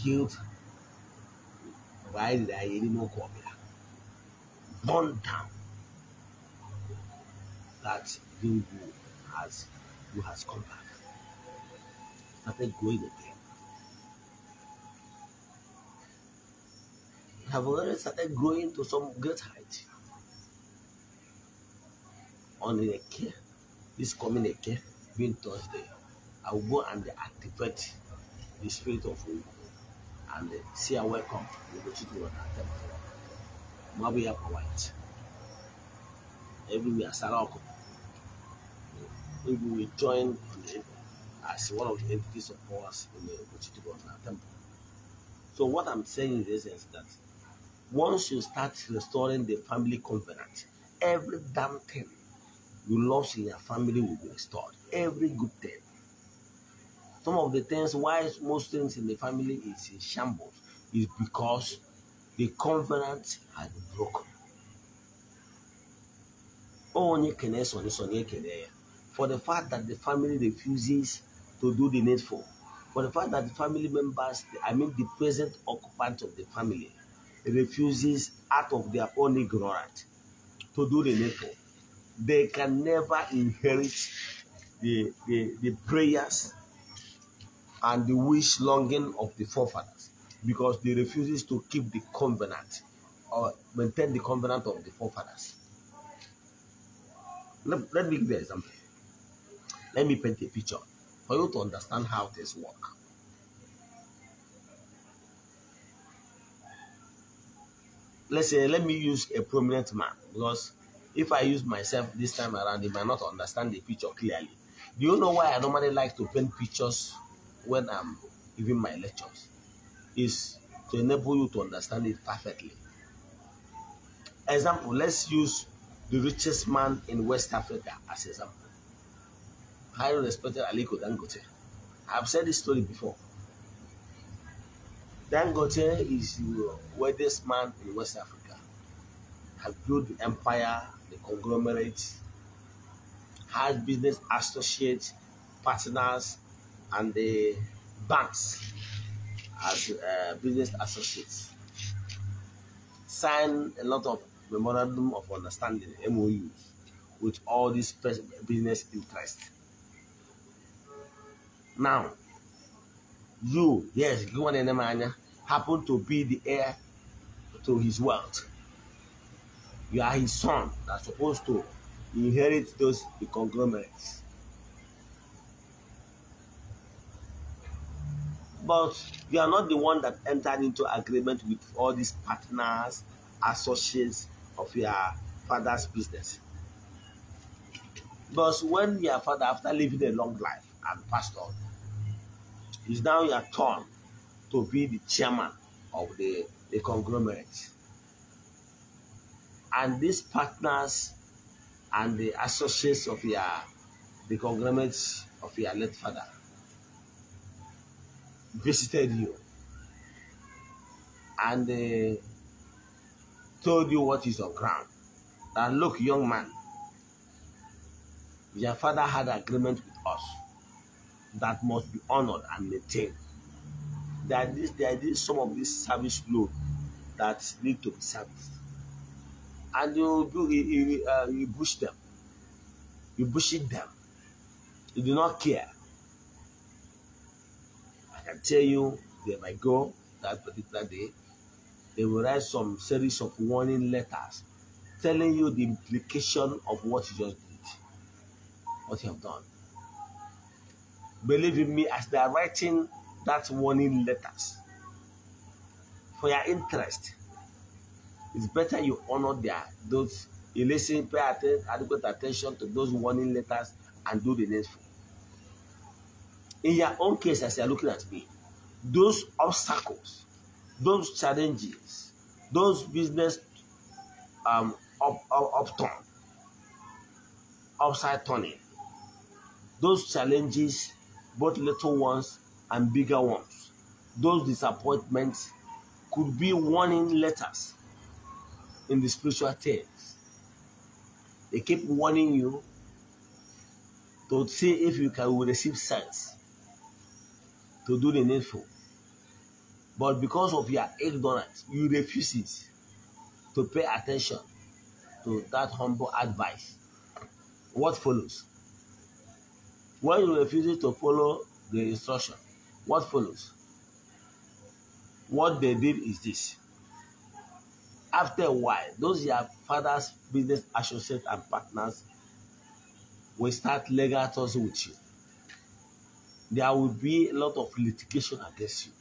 killed why did I really not call that? Burn down that you who has who has come back. Started going again. Have already started growing to some great height. On the care, this coming care being Thursday, I will go and activate the spirit of woman and say a welcome Temple. Onatemaka. Mabu Yapa White. Everywhere, Sarako. We will join as one of the entities of powers in the Ugochukwu Temple. So what I'm saying in is that once you start restoring the family covenant, every damn thing you lost in your family will be restored. Every good thing. Some of the things why most things in the family is in shambles is because the covenant had broken. For the fact that the family refuses to do the needful, for the fact that the family members, I mean the present occupant of the family, refuses out of their own ignorance to do the needful, they can never inherit the, the, the prayers and the wish longing of the forefathers because they refuses to keep the covenant or maintain the covenant of the forefathers. Let, let me give you an example. Let me paint a picture for you to understand how this work. Let's say, let me use a prominent man because if I use myself this time around, they might not understand the picture clearly. Do you know why I normally like to paint pictures when I'm giving my lectures is to enable you to understand it perfectly. Example, let's use the richest man in West Africa as example. Highly respected Aliko Dangote. I've said this story before. Dangote is the wealthiest man in West Africa. Has built the empire, the conglomerate, has business associates, partners, and the banks as uh, business associates sign a lot of memorandum of understanding MOUs with all these business interests. Now, you, yes, Gwan Enemanya, happen to be the heir to his wealth. You are his son that's supposed to inherit those conglomerates. but you are not the one that entered into agreement with all these partners, associates of your father's business. Because when your father, after living a long life and passed on, it's now your turn to be the chairman of the, the conglomerate. And these partners and the associates of your the conglomerate of your late father visited you and uh, told you what is on ground. And look, young man, your father had agreement with us that must be honored and maintained. There are, some of these service load that need to be serviced. And you, you, you, uh, you push them. You push them. You do not care. I can tell you they might go that particular day, they will write some series of warning letters telling you the implication of what you just did, what you have done. Believe in me, as they are writing that warning letters, for your interest, it's better you honor their those you listen, pay atten adequate attention to those warning letters and do the needful in your own case as you are looking at me, those obstacles, those challenges, those business um, up, up, upturn, upside turning, those challenges, both little ones and bigger ones, those disappointments could be warning letters in the spiritual things. They keep warning you to see if you can receive sense to do the needful. But because of your ignorance, you refuse it to pay attention to that humble advice. What follows? When you refuse to follow the instruction, what follows? What they did is this. After a while, those your father's business associates and partners will start legal with you there will be a lot of litigation against you,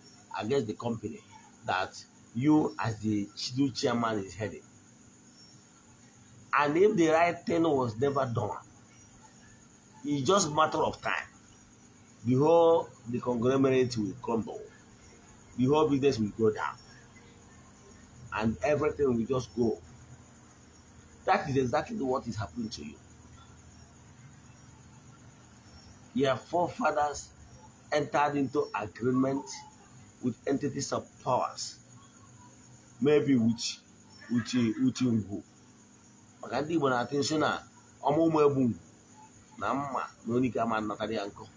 against the company that you as the new chairman is heading. And if the right thing was never done, it's just matter of time. The whole the conglomerate will crumble. The whole business will go down. And everything will just go. That is exactly what is happening to you. Your forefathers entered into agreement with entities of powers, maybe with with with Igbo. Maka ndị Igbo attention. atu nso na ọma ụmụ egbu na mma na onye ike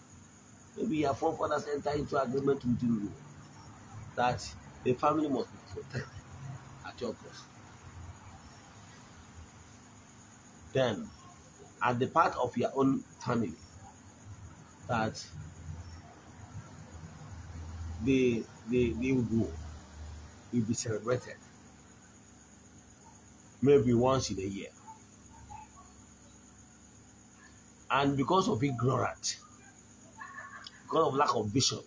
Maybe your forefathers entered into agreement with you that the family must be protected at your cost. Then, at the part of your own family that they, they, they will go. It will be celebrated. Maybe once in a year. And because of ignorance, because of lack of vision,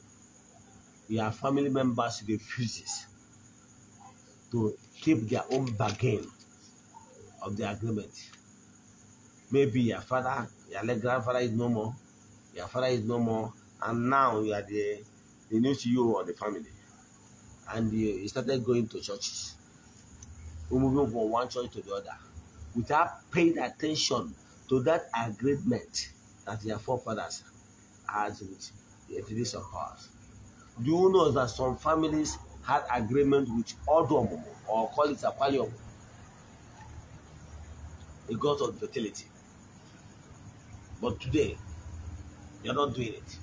their family members refuses to keep their own bargain of the agreement. Maybe your father, your late grandfather is no more, your father is no more, and now you are the they knew you or the family. And he started going to churches, moving from one church to the other, without paying attention to that agreement that their forefathers had with the entities of powers. Do you know that some families had agreement with Odom or call it Aquarium, a god of fertility? But today, you're not doing it.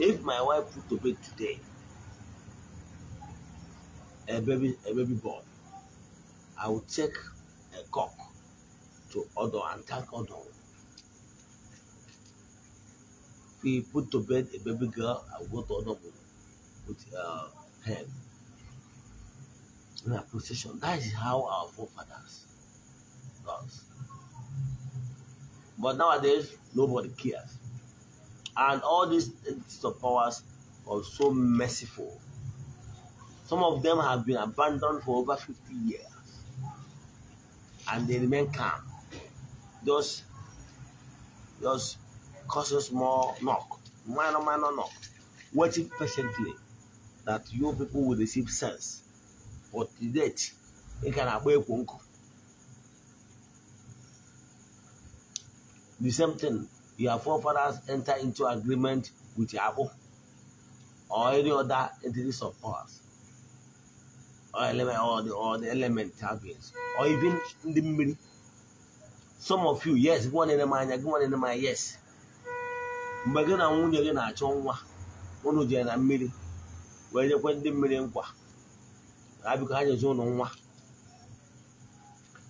If my wife put to bed today a baby a baby boy, I will take a cock to Odo and thank Odo. If he put to bed a baby girl, I will go to Odo with her her in a procession. That is how our forefathers does. But nowadays, nobody cares. And all these entities of powers are so merciful. Some of them have been abandoned for over 50 years and they remain calm. Just, just causes small knock, minor, minor knock, waiting patiently that your people will receive sense. But to date, it can abate The same thing your forefathers enter into agreement with Yahweh or any other entities of powers or element or the or the element or even ndị mmiri some of you yes gị nwanne m anya gị nwanne m yes mgbe gị na nwunye gị na-achọ nwa unu jere na mmiri wee nyekwe ndị mmiri nkwa ha biko ha nwa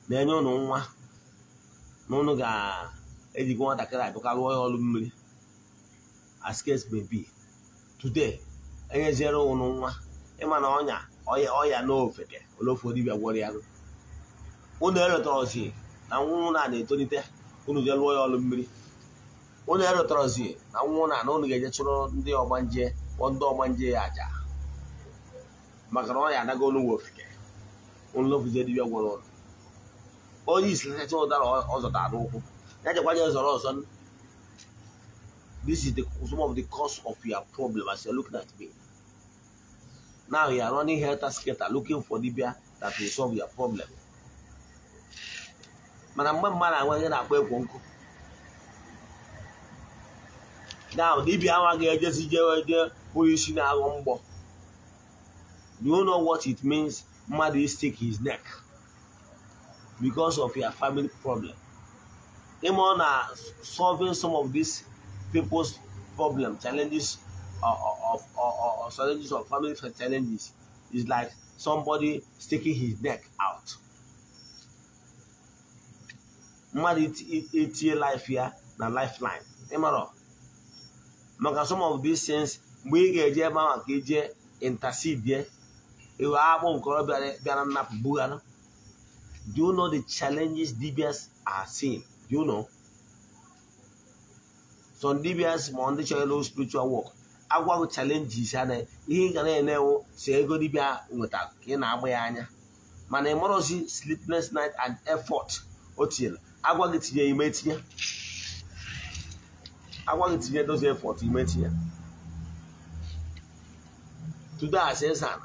na-enye ụlọ nwa na ụnụ ga ejigo nwatakịrị adụkarị onye ọrụ mmiri as case may be today enyeziere ụnụ nwa ịma na ọnya ọya n'ofeke ole ofu dibịa gwọrọ ya unu na nwa na na-etolite unu jee lụọ ya ọrụ mmiri unu erụtọrọzi na nwa na na ụnụ ga-eje chụrụ ndị ọgbanje ọgbanje ya aja maka na ọya anago olu ofeke unu lofuzie gwọrọ onye isi nsacha ụdara ọ zọtara n'ụkwụ That's why there's a lot This is the, some of the cause of your problem as you're looking at me. Now you are running helter skelter looking for the dibia that will solve your problem. Mana mgbe mmadụ anweghị na-akpọ ekwo nkụ. Now dibia amaghị ejezi jewe je onye isi na-aghọ mgbọ. Do you know what it means? Mmadụ stick his neck because of your family problem. aim are uh, solving some of these people's problems, challenges uh, uh, of, of, challenges of family challenges is like somebody sticking his neck out Man, it mmadụ etie life here, the lifeline ịmara maka some of these things mgbe get here, ga-eje ebe here, ka eje intercede iwe akpụ nkorobịa bịara nnapụ bugara do you know the challenges DBS are seeing You know. Some DBS ma ndị chọrọ ịlụ spiritual work agwa challenges ya na ihe ị ga na-enewo si ego dibịa nweta ka ị na-agba ya anya mana ị sleepless night and effort o tinyere agwaghị tinye ime tinye agwa tinye dozi effort ime tinye today as ezan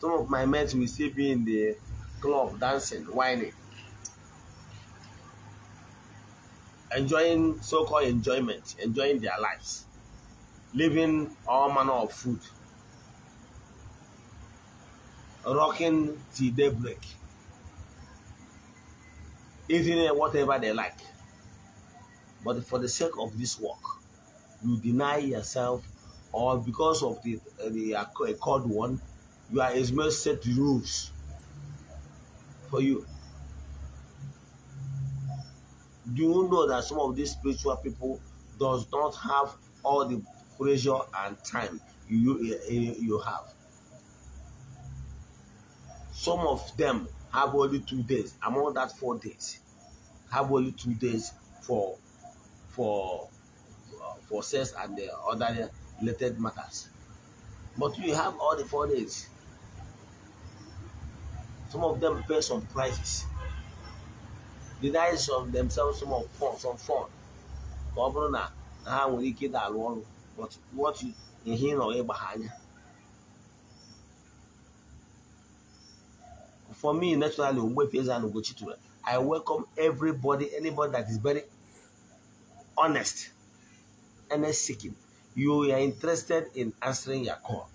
some of my mates will still be in the club dancing whining enjoying so-called enjoyment, enjoying their lives, living all manner of food, rocking till daybreak, eating whatever they like. But for the sake of this work, you deny yourself, or because of the, the accord one, you are as much set rules for you do you know that some of these spiritual people does not have all the pressure and time you, eh, eh, you, have? Some of them have only two days, among that four days, have only two days for for uh, for sex and the other related matters. But you have all the four days. Some of them pay some prices deny some themselves some of fun some fun ka what you hear ị nọrọ behind. for me naturally I welcome everybody anybody that is very honest and seeking you are interested in answering your call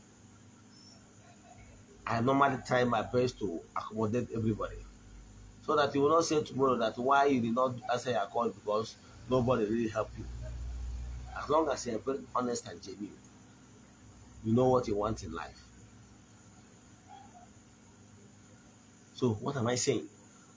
I normally try my best to accommodate everybody so that you will not say tomorrow that why you did not answer your call because nobody really helped you. As long as you are very honest and genuine, you know what you want in life. So what am I saying?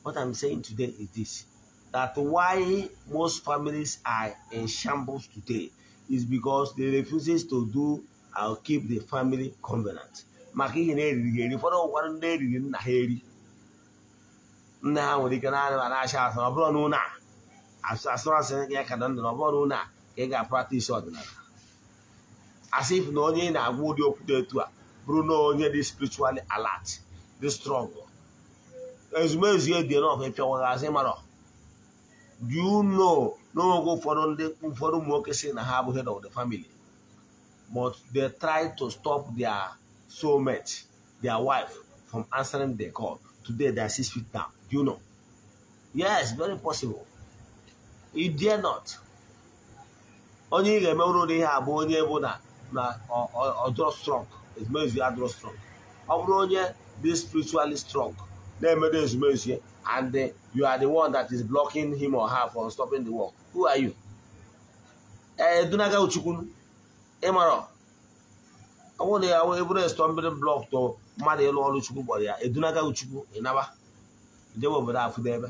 What I'm saying today is this. That why most families are in shambles today is because they refuses to do or keep the family covenant. Now ha nwere ike naanị ma na-achị asụ ọ bụrụ na ụlọ a asụrụ asị ya ka na ndụ na ọ bụrụ na ụlọ a ka ị ga-apratisi ọdịnala asị if na onye ị na-agwa ụdị okwu dị etu a bụrụ na onye dị spiritually alert dị strong ezumezu ya dị enough ịpịawaghị azị mara do you know n'oge ụfọdụ ndị ụfọdụ ụmụ nwoke sị na ha abụghị head of the family but they try to stop their soulmate their wife from answering the call today they are six feet down you know. Yes, very possible. You dare not. onye ị ga-eme ụrụ ihe abụ onye bụ na na ọdụrụ strong ezumezu ya adụrụ strong ọ bụrụ onye spiritually strong na-emedo ezumezu ya and you are the one that is blocking him or her from stopping the work who are you edunaga uchukwu ịmarọ ọ bụrụ na ya eburu estombiri blọk to mmadụ ịlụ ọrụ chukwu kpọrọ ya edunaga uchukwu ịnaba jewe obodo afụdebe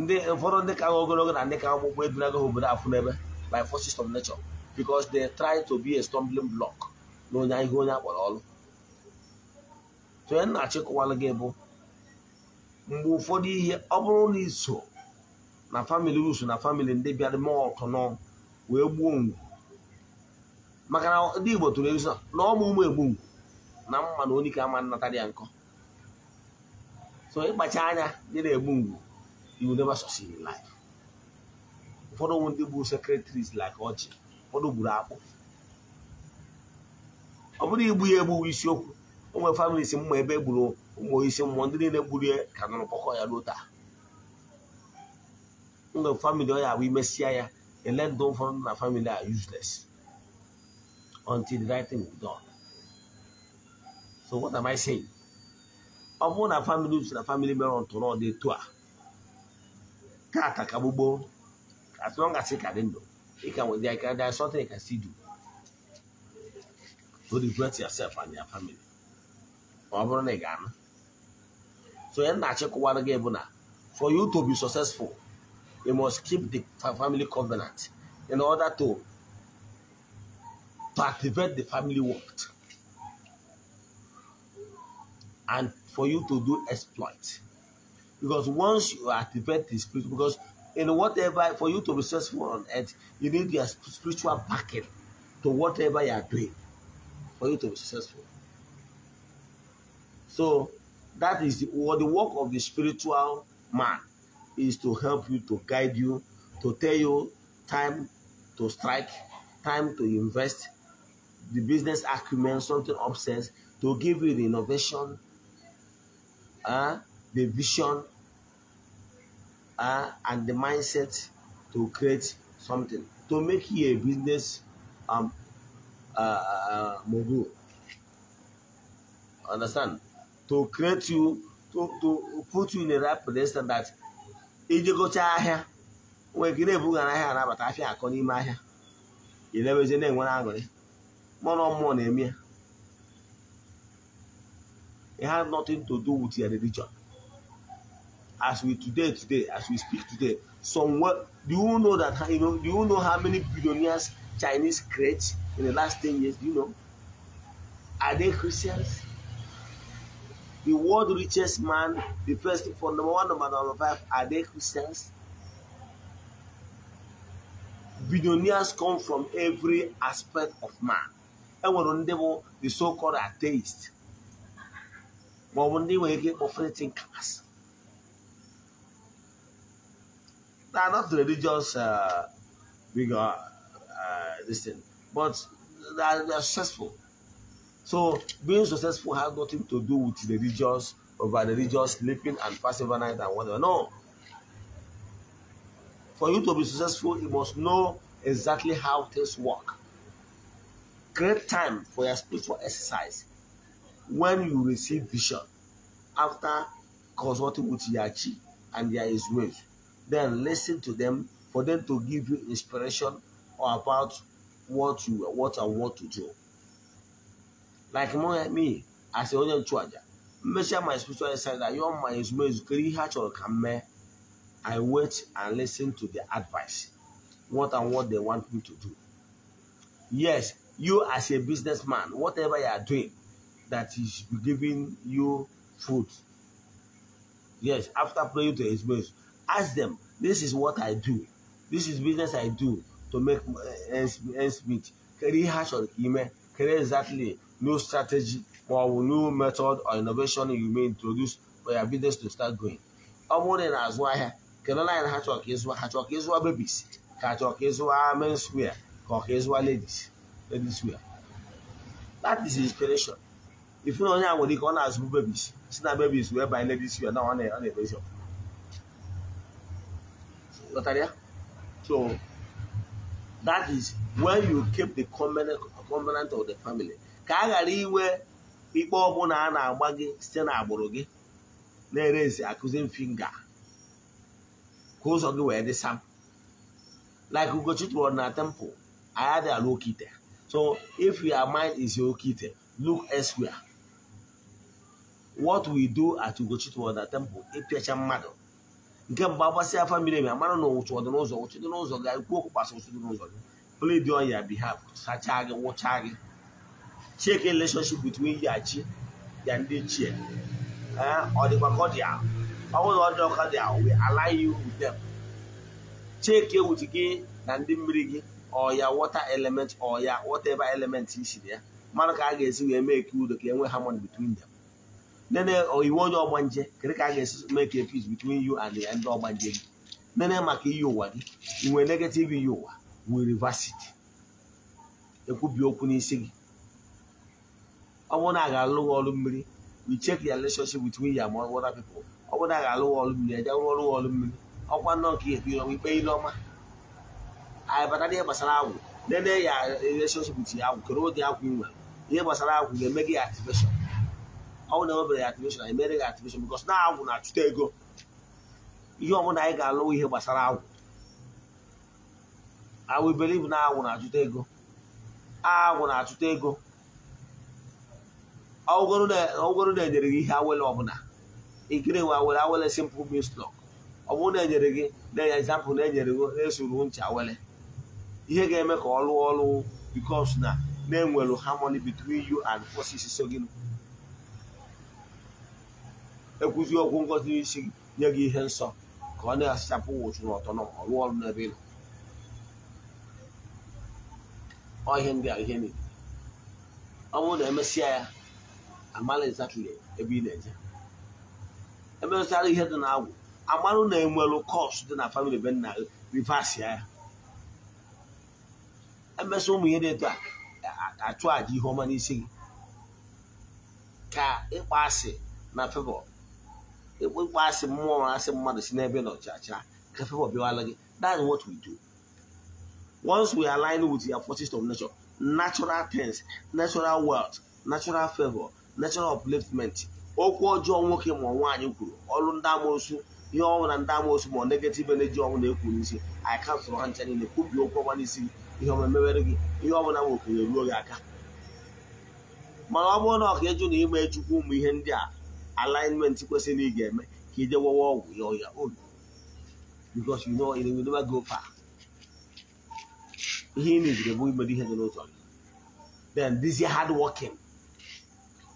ndị ụfọdụ ndị ka ogologo na ndị ka akwụkwọ edunago ha obodo afụ n'ebe by forces of nature because they try to be a stumbling block na onye ihe onye akpọrọ ọrụ onye na-achịkọwalụ gị bụ mgbe ụfọdụ ihe ọ bụrụ na iso na famili usu na famili ndị bịara mee ọkụnọ wee gbuo ngwu maka na ndị Igbo tụrụ ezu na ọ bụ ụmụ egbu ngwu na mma na onye ka ama nnata dị ya nkọ so ịkpacha anya dị na-egbu mgbu you will never succeed in life ụfọdụ ndị bụ secretaries like ọchị ụfọdụ gburu akpụ ọ bụrụ igbu ya egbu isiokwu ụmụ families mma ebe e gburu ụmụ isi mmụọ ndị niile gburu ya ka nọrọ kpọkọ ya ruo taa mgbe famili ọ ya abụ imesịa ya ele ndụ ụfọdụ na famili a useless until the right done So what am I saying? Ọmụ na family uche na family mere ntụrụ ọ dị etu a. Kata ka as long as ị can dị ndụ can ka there there is something you can still do. Don't regret yourself and your family. Ma ọ bụrụ So ihe na check one again, for you to be successful you must keep the family covenant in order to to activate the family work and for you to do exploit. Because once you activate the spirit, because in whatever, for you to be successful on earth, you need your spiritual backing to whatever you are doing for you to be successful. So that is the, what the work of the spiritual man is to help you, to guide you, to tell you time to strike, time to invest, the business acumen, something upsets, to give you the innovation uh, the vision uh, and the mindset to create something, to make you a business um, uh, uh, uh mogul. Understand? To create you, to, to put you in the right position that iji gụchaa ahịa nwee gị na-ebughara ahịa anabata afịa akọ n'ime ahịa ị na-enwezi na-enwere aṅụrị mmụọ na mmụọ na-eme ya it has nothing to do with your religion. As we today, today, as we speak today, somewhere, do you know that you know? Do you know how many billionaires Chinese create in the last ten years? Do you know? Are they Christians? The world richest man, the first for number one, number number five, are they Christians? billionaires come from every aspect of man. And when the so-called atheists, ma ọ bụ ndị operating class they are not religious uh, bigger uh, this thing but they are, they are successful so being successful has nothing to do with religious over religious sleeping and passing overnight and whatever no for you to be successful, you must know exactly how things work. Create time for your spiritual exercise when you receive vision after consulting with Yachi and their waves, then listen to them for them to give you inspiration or about what you what and what to do. Like me, as a onye nchụaja, measure my spiritual insight that your my is kiri ihe a chọrọ ka m I wait and listen to the advice, what and what they want me to do. Yes, you as a businessman, whatever you are doing, that he should be giving you food. Yes, after praying to his ministry, ask them, this is what I do. This is business I do to make eh, ends, ends meet. Carry hash or email, carry exactly new strategy or new method or innovation you may introduce for your business to start going. Ọmụ dị n'azụ ahịa, kelela anyị na ha chọrọ ka ịzụwa, ha chọrọ babies, ka ha chọrọ ka ịzụwa menswear, ka ladies, ladies wear. That is inspiration. ifuna onye a nwere ike ọ na-azụbu bebis si na bebis wee banye n'ebe isi ya na ọ na-emezi ya so that is when you keep the covenant of the family ka a ghara inwe ikpe ọbụla a na-agba gị site agbụrụ gị na the akụzi finga ka ụzọ gị wee dị sam like Ugochitru na temple I had a low kite so if your mind is your okite look elsewhere what we do at Ugochitwu Temple ịpịacha e mmadụ nke mgbe agbasị afa miri emi amara na ụchụ dị n'ụzọ ụchụ dị n'ụzọ gị ikwu okwu gbasa ụchụ dị n'ụzọ gị plead on your behalf sachaa gị wụchaa gị check relationship between ya chi ya ndị ichie eh, ọ dịkwa ka ọ dị ahụ ọ bụrụ ọ dị ọka dị ahụ we align you with them check with gị na ndị mmiri gị ọ ya water element ọ ya whatever element isi na ya mara ka a ga-esi wee mee ka udo ka e nwee harmony between them nene oh, iwu onye ọgbanje kedu ka a ga-esi make a peace between you and ndị ọgbanje gị nene maka iyi ụwa gị inwe negative iyi ụwa we reverse it ekwubi okwu n'isi gị ọ bụrụ na a ga-alụ gị ọrụ mmiri we check your relationship between you and other people ọ bụrụ na a ga-alụ gị ọrụ mmiri eje rụọ ọrụ gị ọrụ mmiri ọkwa nọ nke ihe ikpe ikpe ile ọma anyị bata n'ihe gbasara agwụ nene ya relationship with ya agwụ kedu ụdị agwụ nwe ihe gbasara agwụ ga-eme gị activation ọ bụrụ na emebere ya activation emere ya activation na agwụ na-achụta ego ihe ọbụla anyị ga alụwa ihe gbasara agwụ awụ iberibu na agwụ na-achụta ego agwụ na-achụta ego ọgwụgoro na-enyere gị ihe awele ọbụla ikiri nwe awele awele simple mistlok ọ bụrụ na-enyere gị na-enye na-enyere gị na-esoro ncha awele ihe ga-eme ka ọ lụọ ọrụ because na na-enwelu harmony between u and forces so gị ekwuzi ọgwụ ngozi n'isi gị nye gị ihe nsọ ka ọ na-asachapụ ụchụ na ọtọ na ọrụ ọrụ n'ebe ị nọ ndị a ihe niile ọ bụrụ na emesịa ya amala exactly ebe ị na-eje emesịara ihe dị na agwụ amarụ na enwelụ kọs dị na famili be nna gị ya emesịa ụmụ ihe dị etu a achụ àjà ihe ọma n'isi gị ka ịkpa asị na febụl ekpekpe asị mmụọ asị mmadụ si n'ebe nọchacha ka favor bịawala gị that is what we do once we align with your forces of nature natural things natural wealth natural favor natural upliftment okwu ọjọọ nwoke ma nwaanyị kwuru ọrụ ndị amosu ihe ọnwụ na ndị amoosu ma negative energy ọnwụ na-ekwu n'isi anyị kansụlụ ha ncha niile kwubi okwu ọgba n'isi gị ihe ọma mewere gị ihe ọbụla ma okenye ruo gị aka mana ọ bụrụ na ọka eju na ime chukwu ụmụ ihe ndị a alignment kwesịrị ị ga-eme ka ị dewewe ọgwụ ya ọya obi because you know it will never go far ihe ị na meziri bụ imedo ihe dị n'ụzọ gị then dizie hard working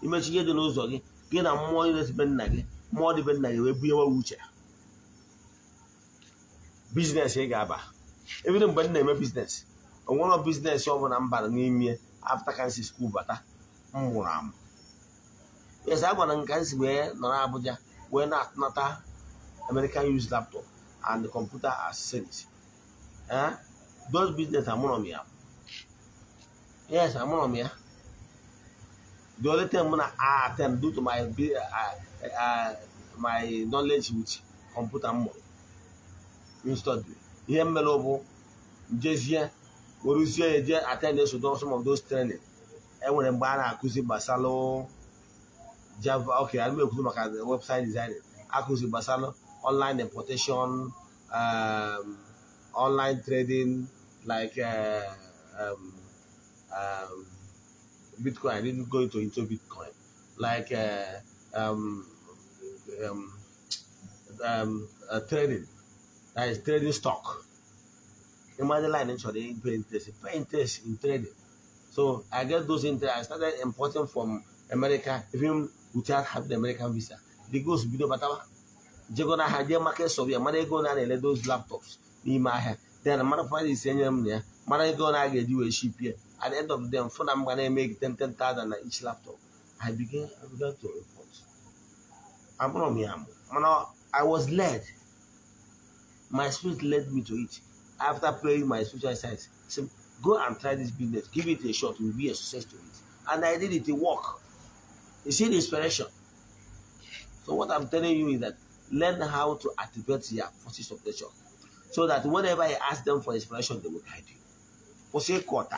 imechi ihe dị n'ụzọ gị gị na mmụọ dịbe nna gị mmụọ dịbe nna gị wee bunyewe uche biznes ị ga-aba ebido mgbe m na-eme biznes onwere bizinesi ọ bụla mbara n'ime afta kansi skuul bata mmụrụ mụrụ amụ yes a gwara m ka anyị si wee nọrọ Abuja wee na-anata American use laptop and computer as accessories eh? those business amụrọ m ya yes amụrọ m ya the only thing m I attend due to my uh, uh, uh, my knowledge with computer m study ihe mmere bụ njezie weruzie eje attend some of those training eh, enwere mgbe a na-akụzi gbasara Java, okay, I'm going to look at the website design, Akusi Basano, online importation, um, online trading, like uh, um, um, Bitcoin. I didn't go into, into Bitcoin. Like uh, um, um, um, uh, trading, that is trading stock. Imagine line actually paying interest, pay interest in trading. So I get those interest. I started importing from America, even without having American visa. The goes bido They go to the market so bia mana go to na those laptops n'ime ahịa. Then mana fa is them. m ya. Mana ego na ga eji we ship ya. At the end of them phone na m gonna make 10 10,000 each laptop. I began I began to report. I'm amo. here. I was led. My spirit led me to it. After praying my spiritual side, said, go and try this business. Give it a shot. You'll be a success to it. And I did it. It worked. You see the inspiration. So what I'm telling you is that learn how to activate your forces of nature. So that whenever I ask them for inspiration, they will guide you. For say quarter.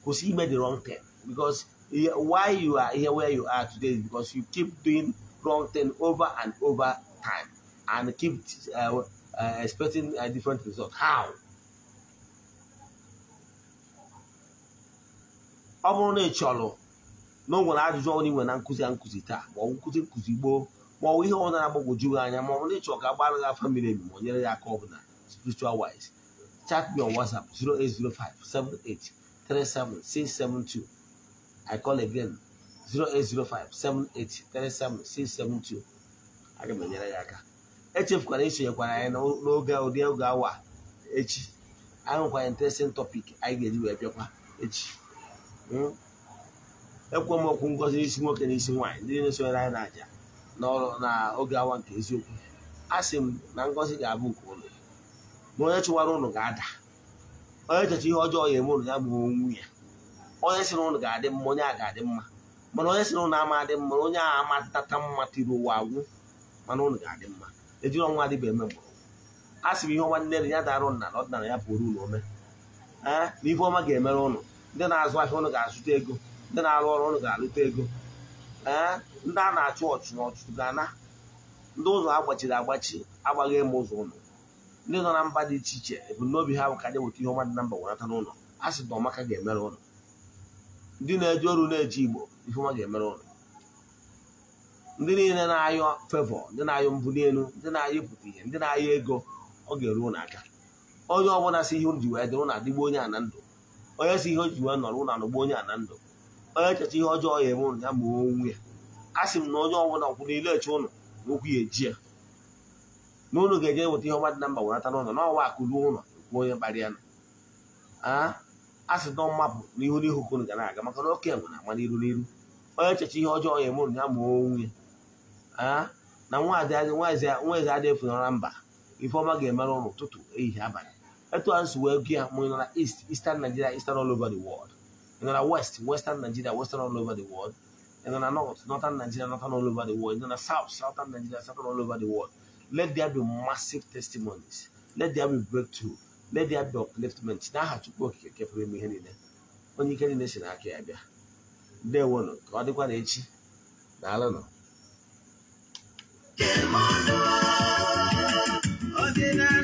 Because he made the wrong turn. Because why you are here where you are today is because you keep doing wrong thing over and over time and keep uh, uh, expecting a uh, different result. How? I'm on a chọrọ na o nwere ajụjụ ọrụ nwere na nkụzi a nkụzi taa ma ọ bụ nkụzi nkụzi gboo ma ọ bụ ihe ọ na-agbagwoju gị anya ma ọ bụ na ịchọrọ ka agbara gị afọ mmiri emi ma ọ nyere ya aka ọbụla spiritual wise chat me on whatsapp 08057837672 i call again 08057837672 aga m enyere ya aka echefukwara esonyekwara anyị n'oge ụdị oge awa echi anyị nwekwara interesting topic anyị ga-eji wee bịakwa echi hmm? ekwe m okwu ngozi n'isi nwoke na isi nwaanyị ndị na-esonyere anyị na-aja n'ọrụ na oge awa nke eziokwu a sị m na ngozi ga-abụ nke ụlọ ma onye chụwara ụnụ ga-ada onye checha ihe ọjọọ ya eme ụnụ ya mụrụ onwu ya onye sị na ụnụ ga-adị mma onye a ga-adị mma mana onye sị na ama adị mma onye a amatata mma tiri ụwa agwụ mana ụlọ ga-adị mma ejiri ọnwa adịba eme mgbọrọgwụ a sị m ihe ọma nne ya darụ nna na ọdịnala ya pụrụ ụlọ ome na ife ọma ga-emere ụnụ ndị na-azụ ahịa ụnụ ga-azụta ego ndị na-arụ ọrụ ụlọ ga-arụta ego ee ndị a na-achụ ọchụ na ga-ana ndị ụzọ agbachiri agbachi agbaghị ịma ụzọ ụlọ ndị nọ na mba dị iche iche ebumnobi ha bụ ka anyị weta ihe ọma dị na mba wenata n'ụlọ a sị na ọmaka ga-emere ụlọ ndị na-eji ọrụ na-eji igbo ifeọma ga-emere ụlọ ndị niile na-ayọ fevọ ndị na-ayọ mbuli elu ndị na-ayọ ịpụta ihe ndị na-ayọ ego ọ ga-eru ụlọ aka onye ọbụla si ihe ji wee dị ụlọ adịgbo onye a na ndụ onye si ihe o ji wee nọrọ ụlọ anọgbo onye a na ndụ echeta ihe ọjọọ ya eme ụnụ ya ma onwe ya a sị m na onye ọbụla kwụ n'ile eche ụnụ na okwu ya eji ya na ụnụ ga-eje weta ihe ọmadị na mba wenata n'ụlọ na ọwa akụruo ụlọ kwuo onye kpara ya a sị nọ mmapụ n'ihu n'ihu ka ụnụ ga na-aga maka na oke enwe na-ama n'iru n'iru onye echecha ihe ọjọọ ya eme ụnụ ya ma onwe ya na nwaeze adị efunara mba ifeọma ga-emere ụlụ ụtụtụ ehihie abalị etu a nsogbu ego ya mụnye na East Eastern Nigeria Eastern all over the world In the west, western Nigeria, western all over the world. In the north, northern Nigeria, northern all over the world. In the south, southern Nigeria, southern all over the world. Let there be massive testimonies. Let there be breakthrough. Let there be upliftment. Now, how to go? here, keep me here. When you get in this, I can't be. They won't. God, they want to I don't know.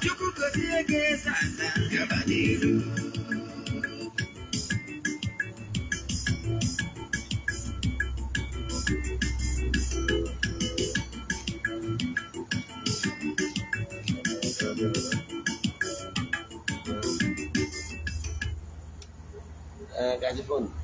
tukukutegeza nanga badiru Uh, guys, phone.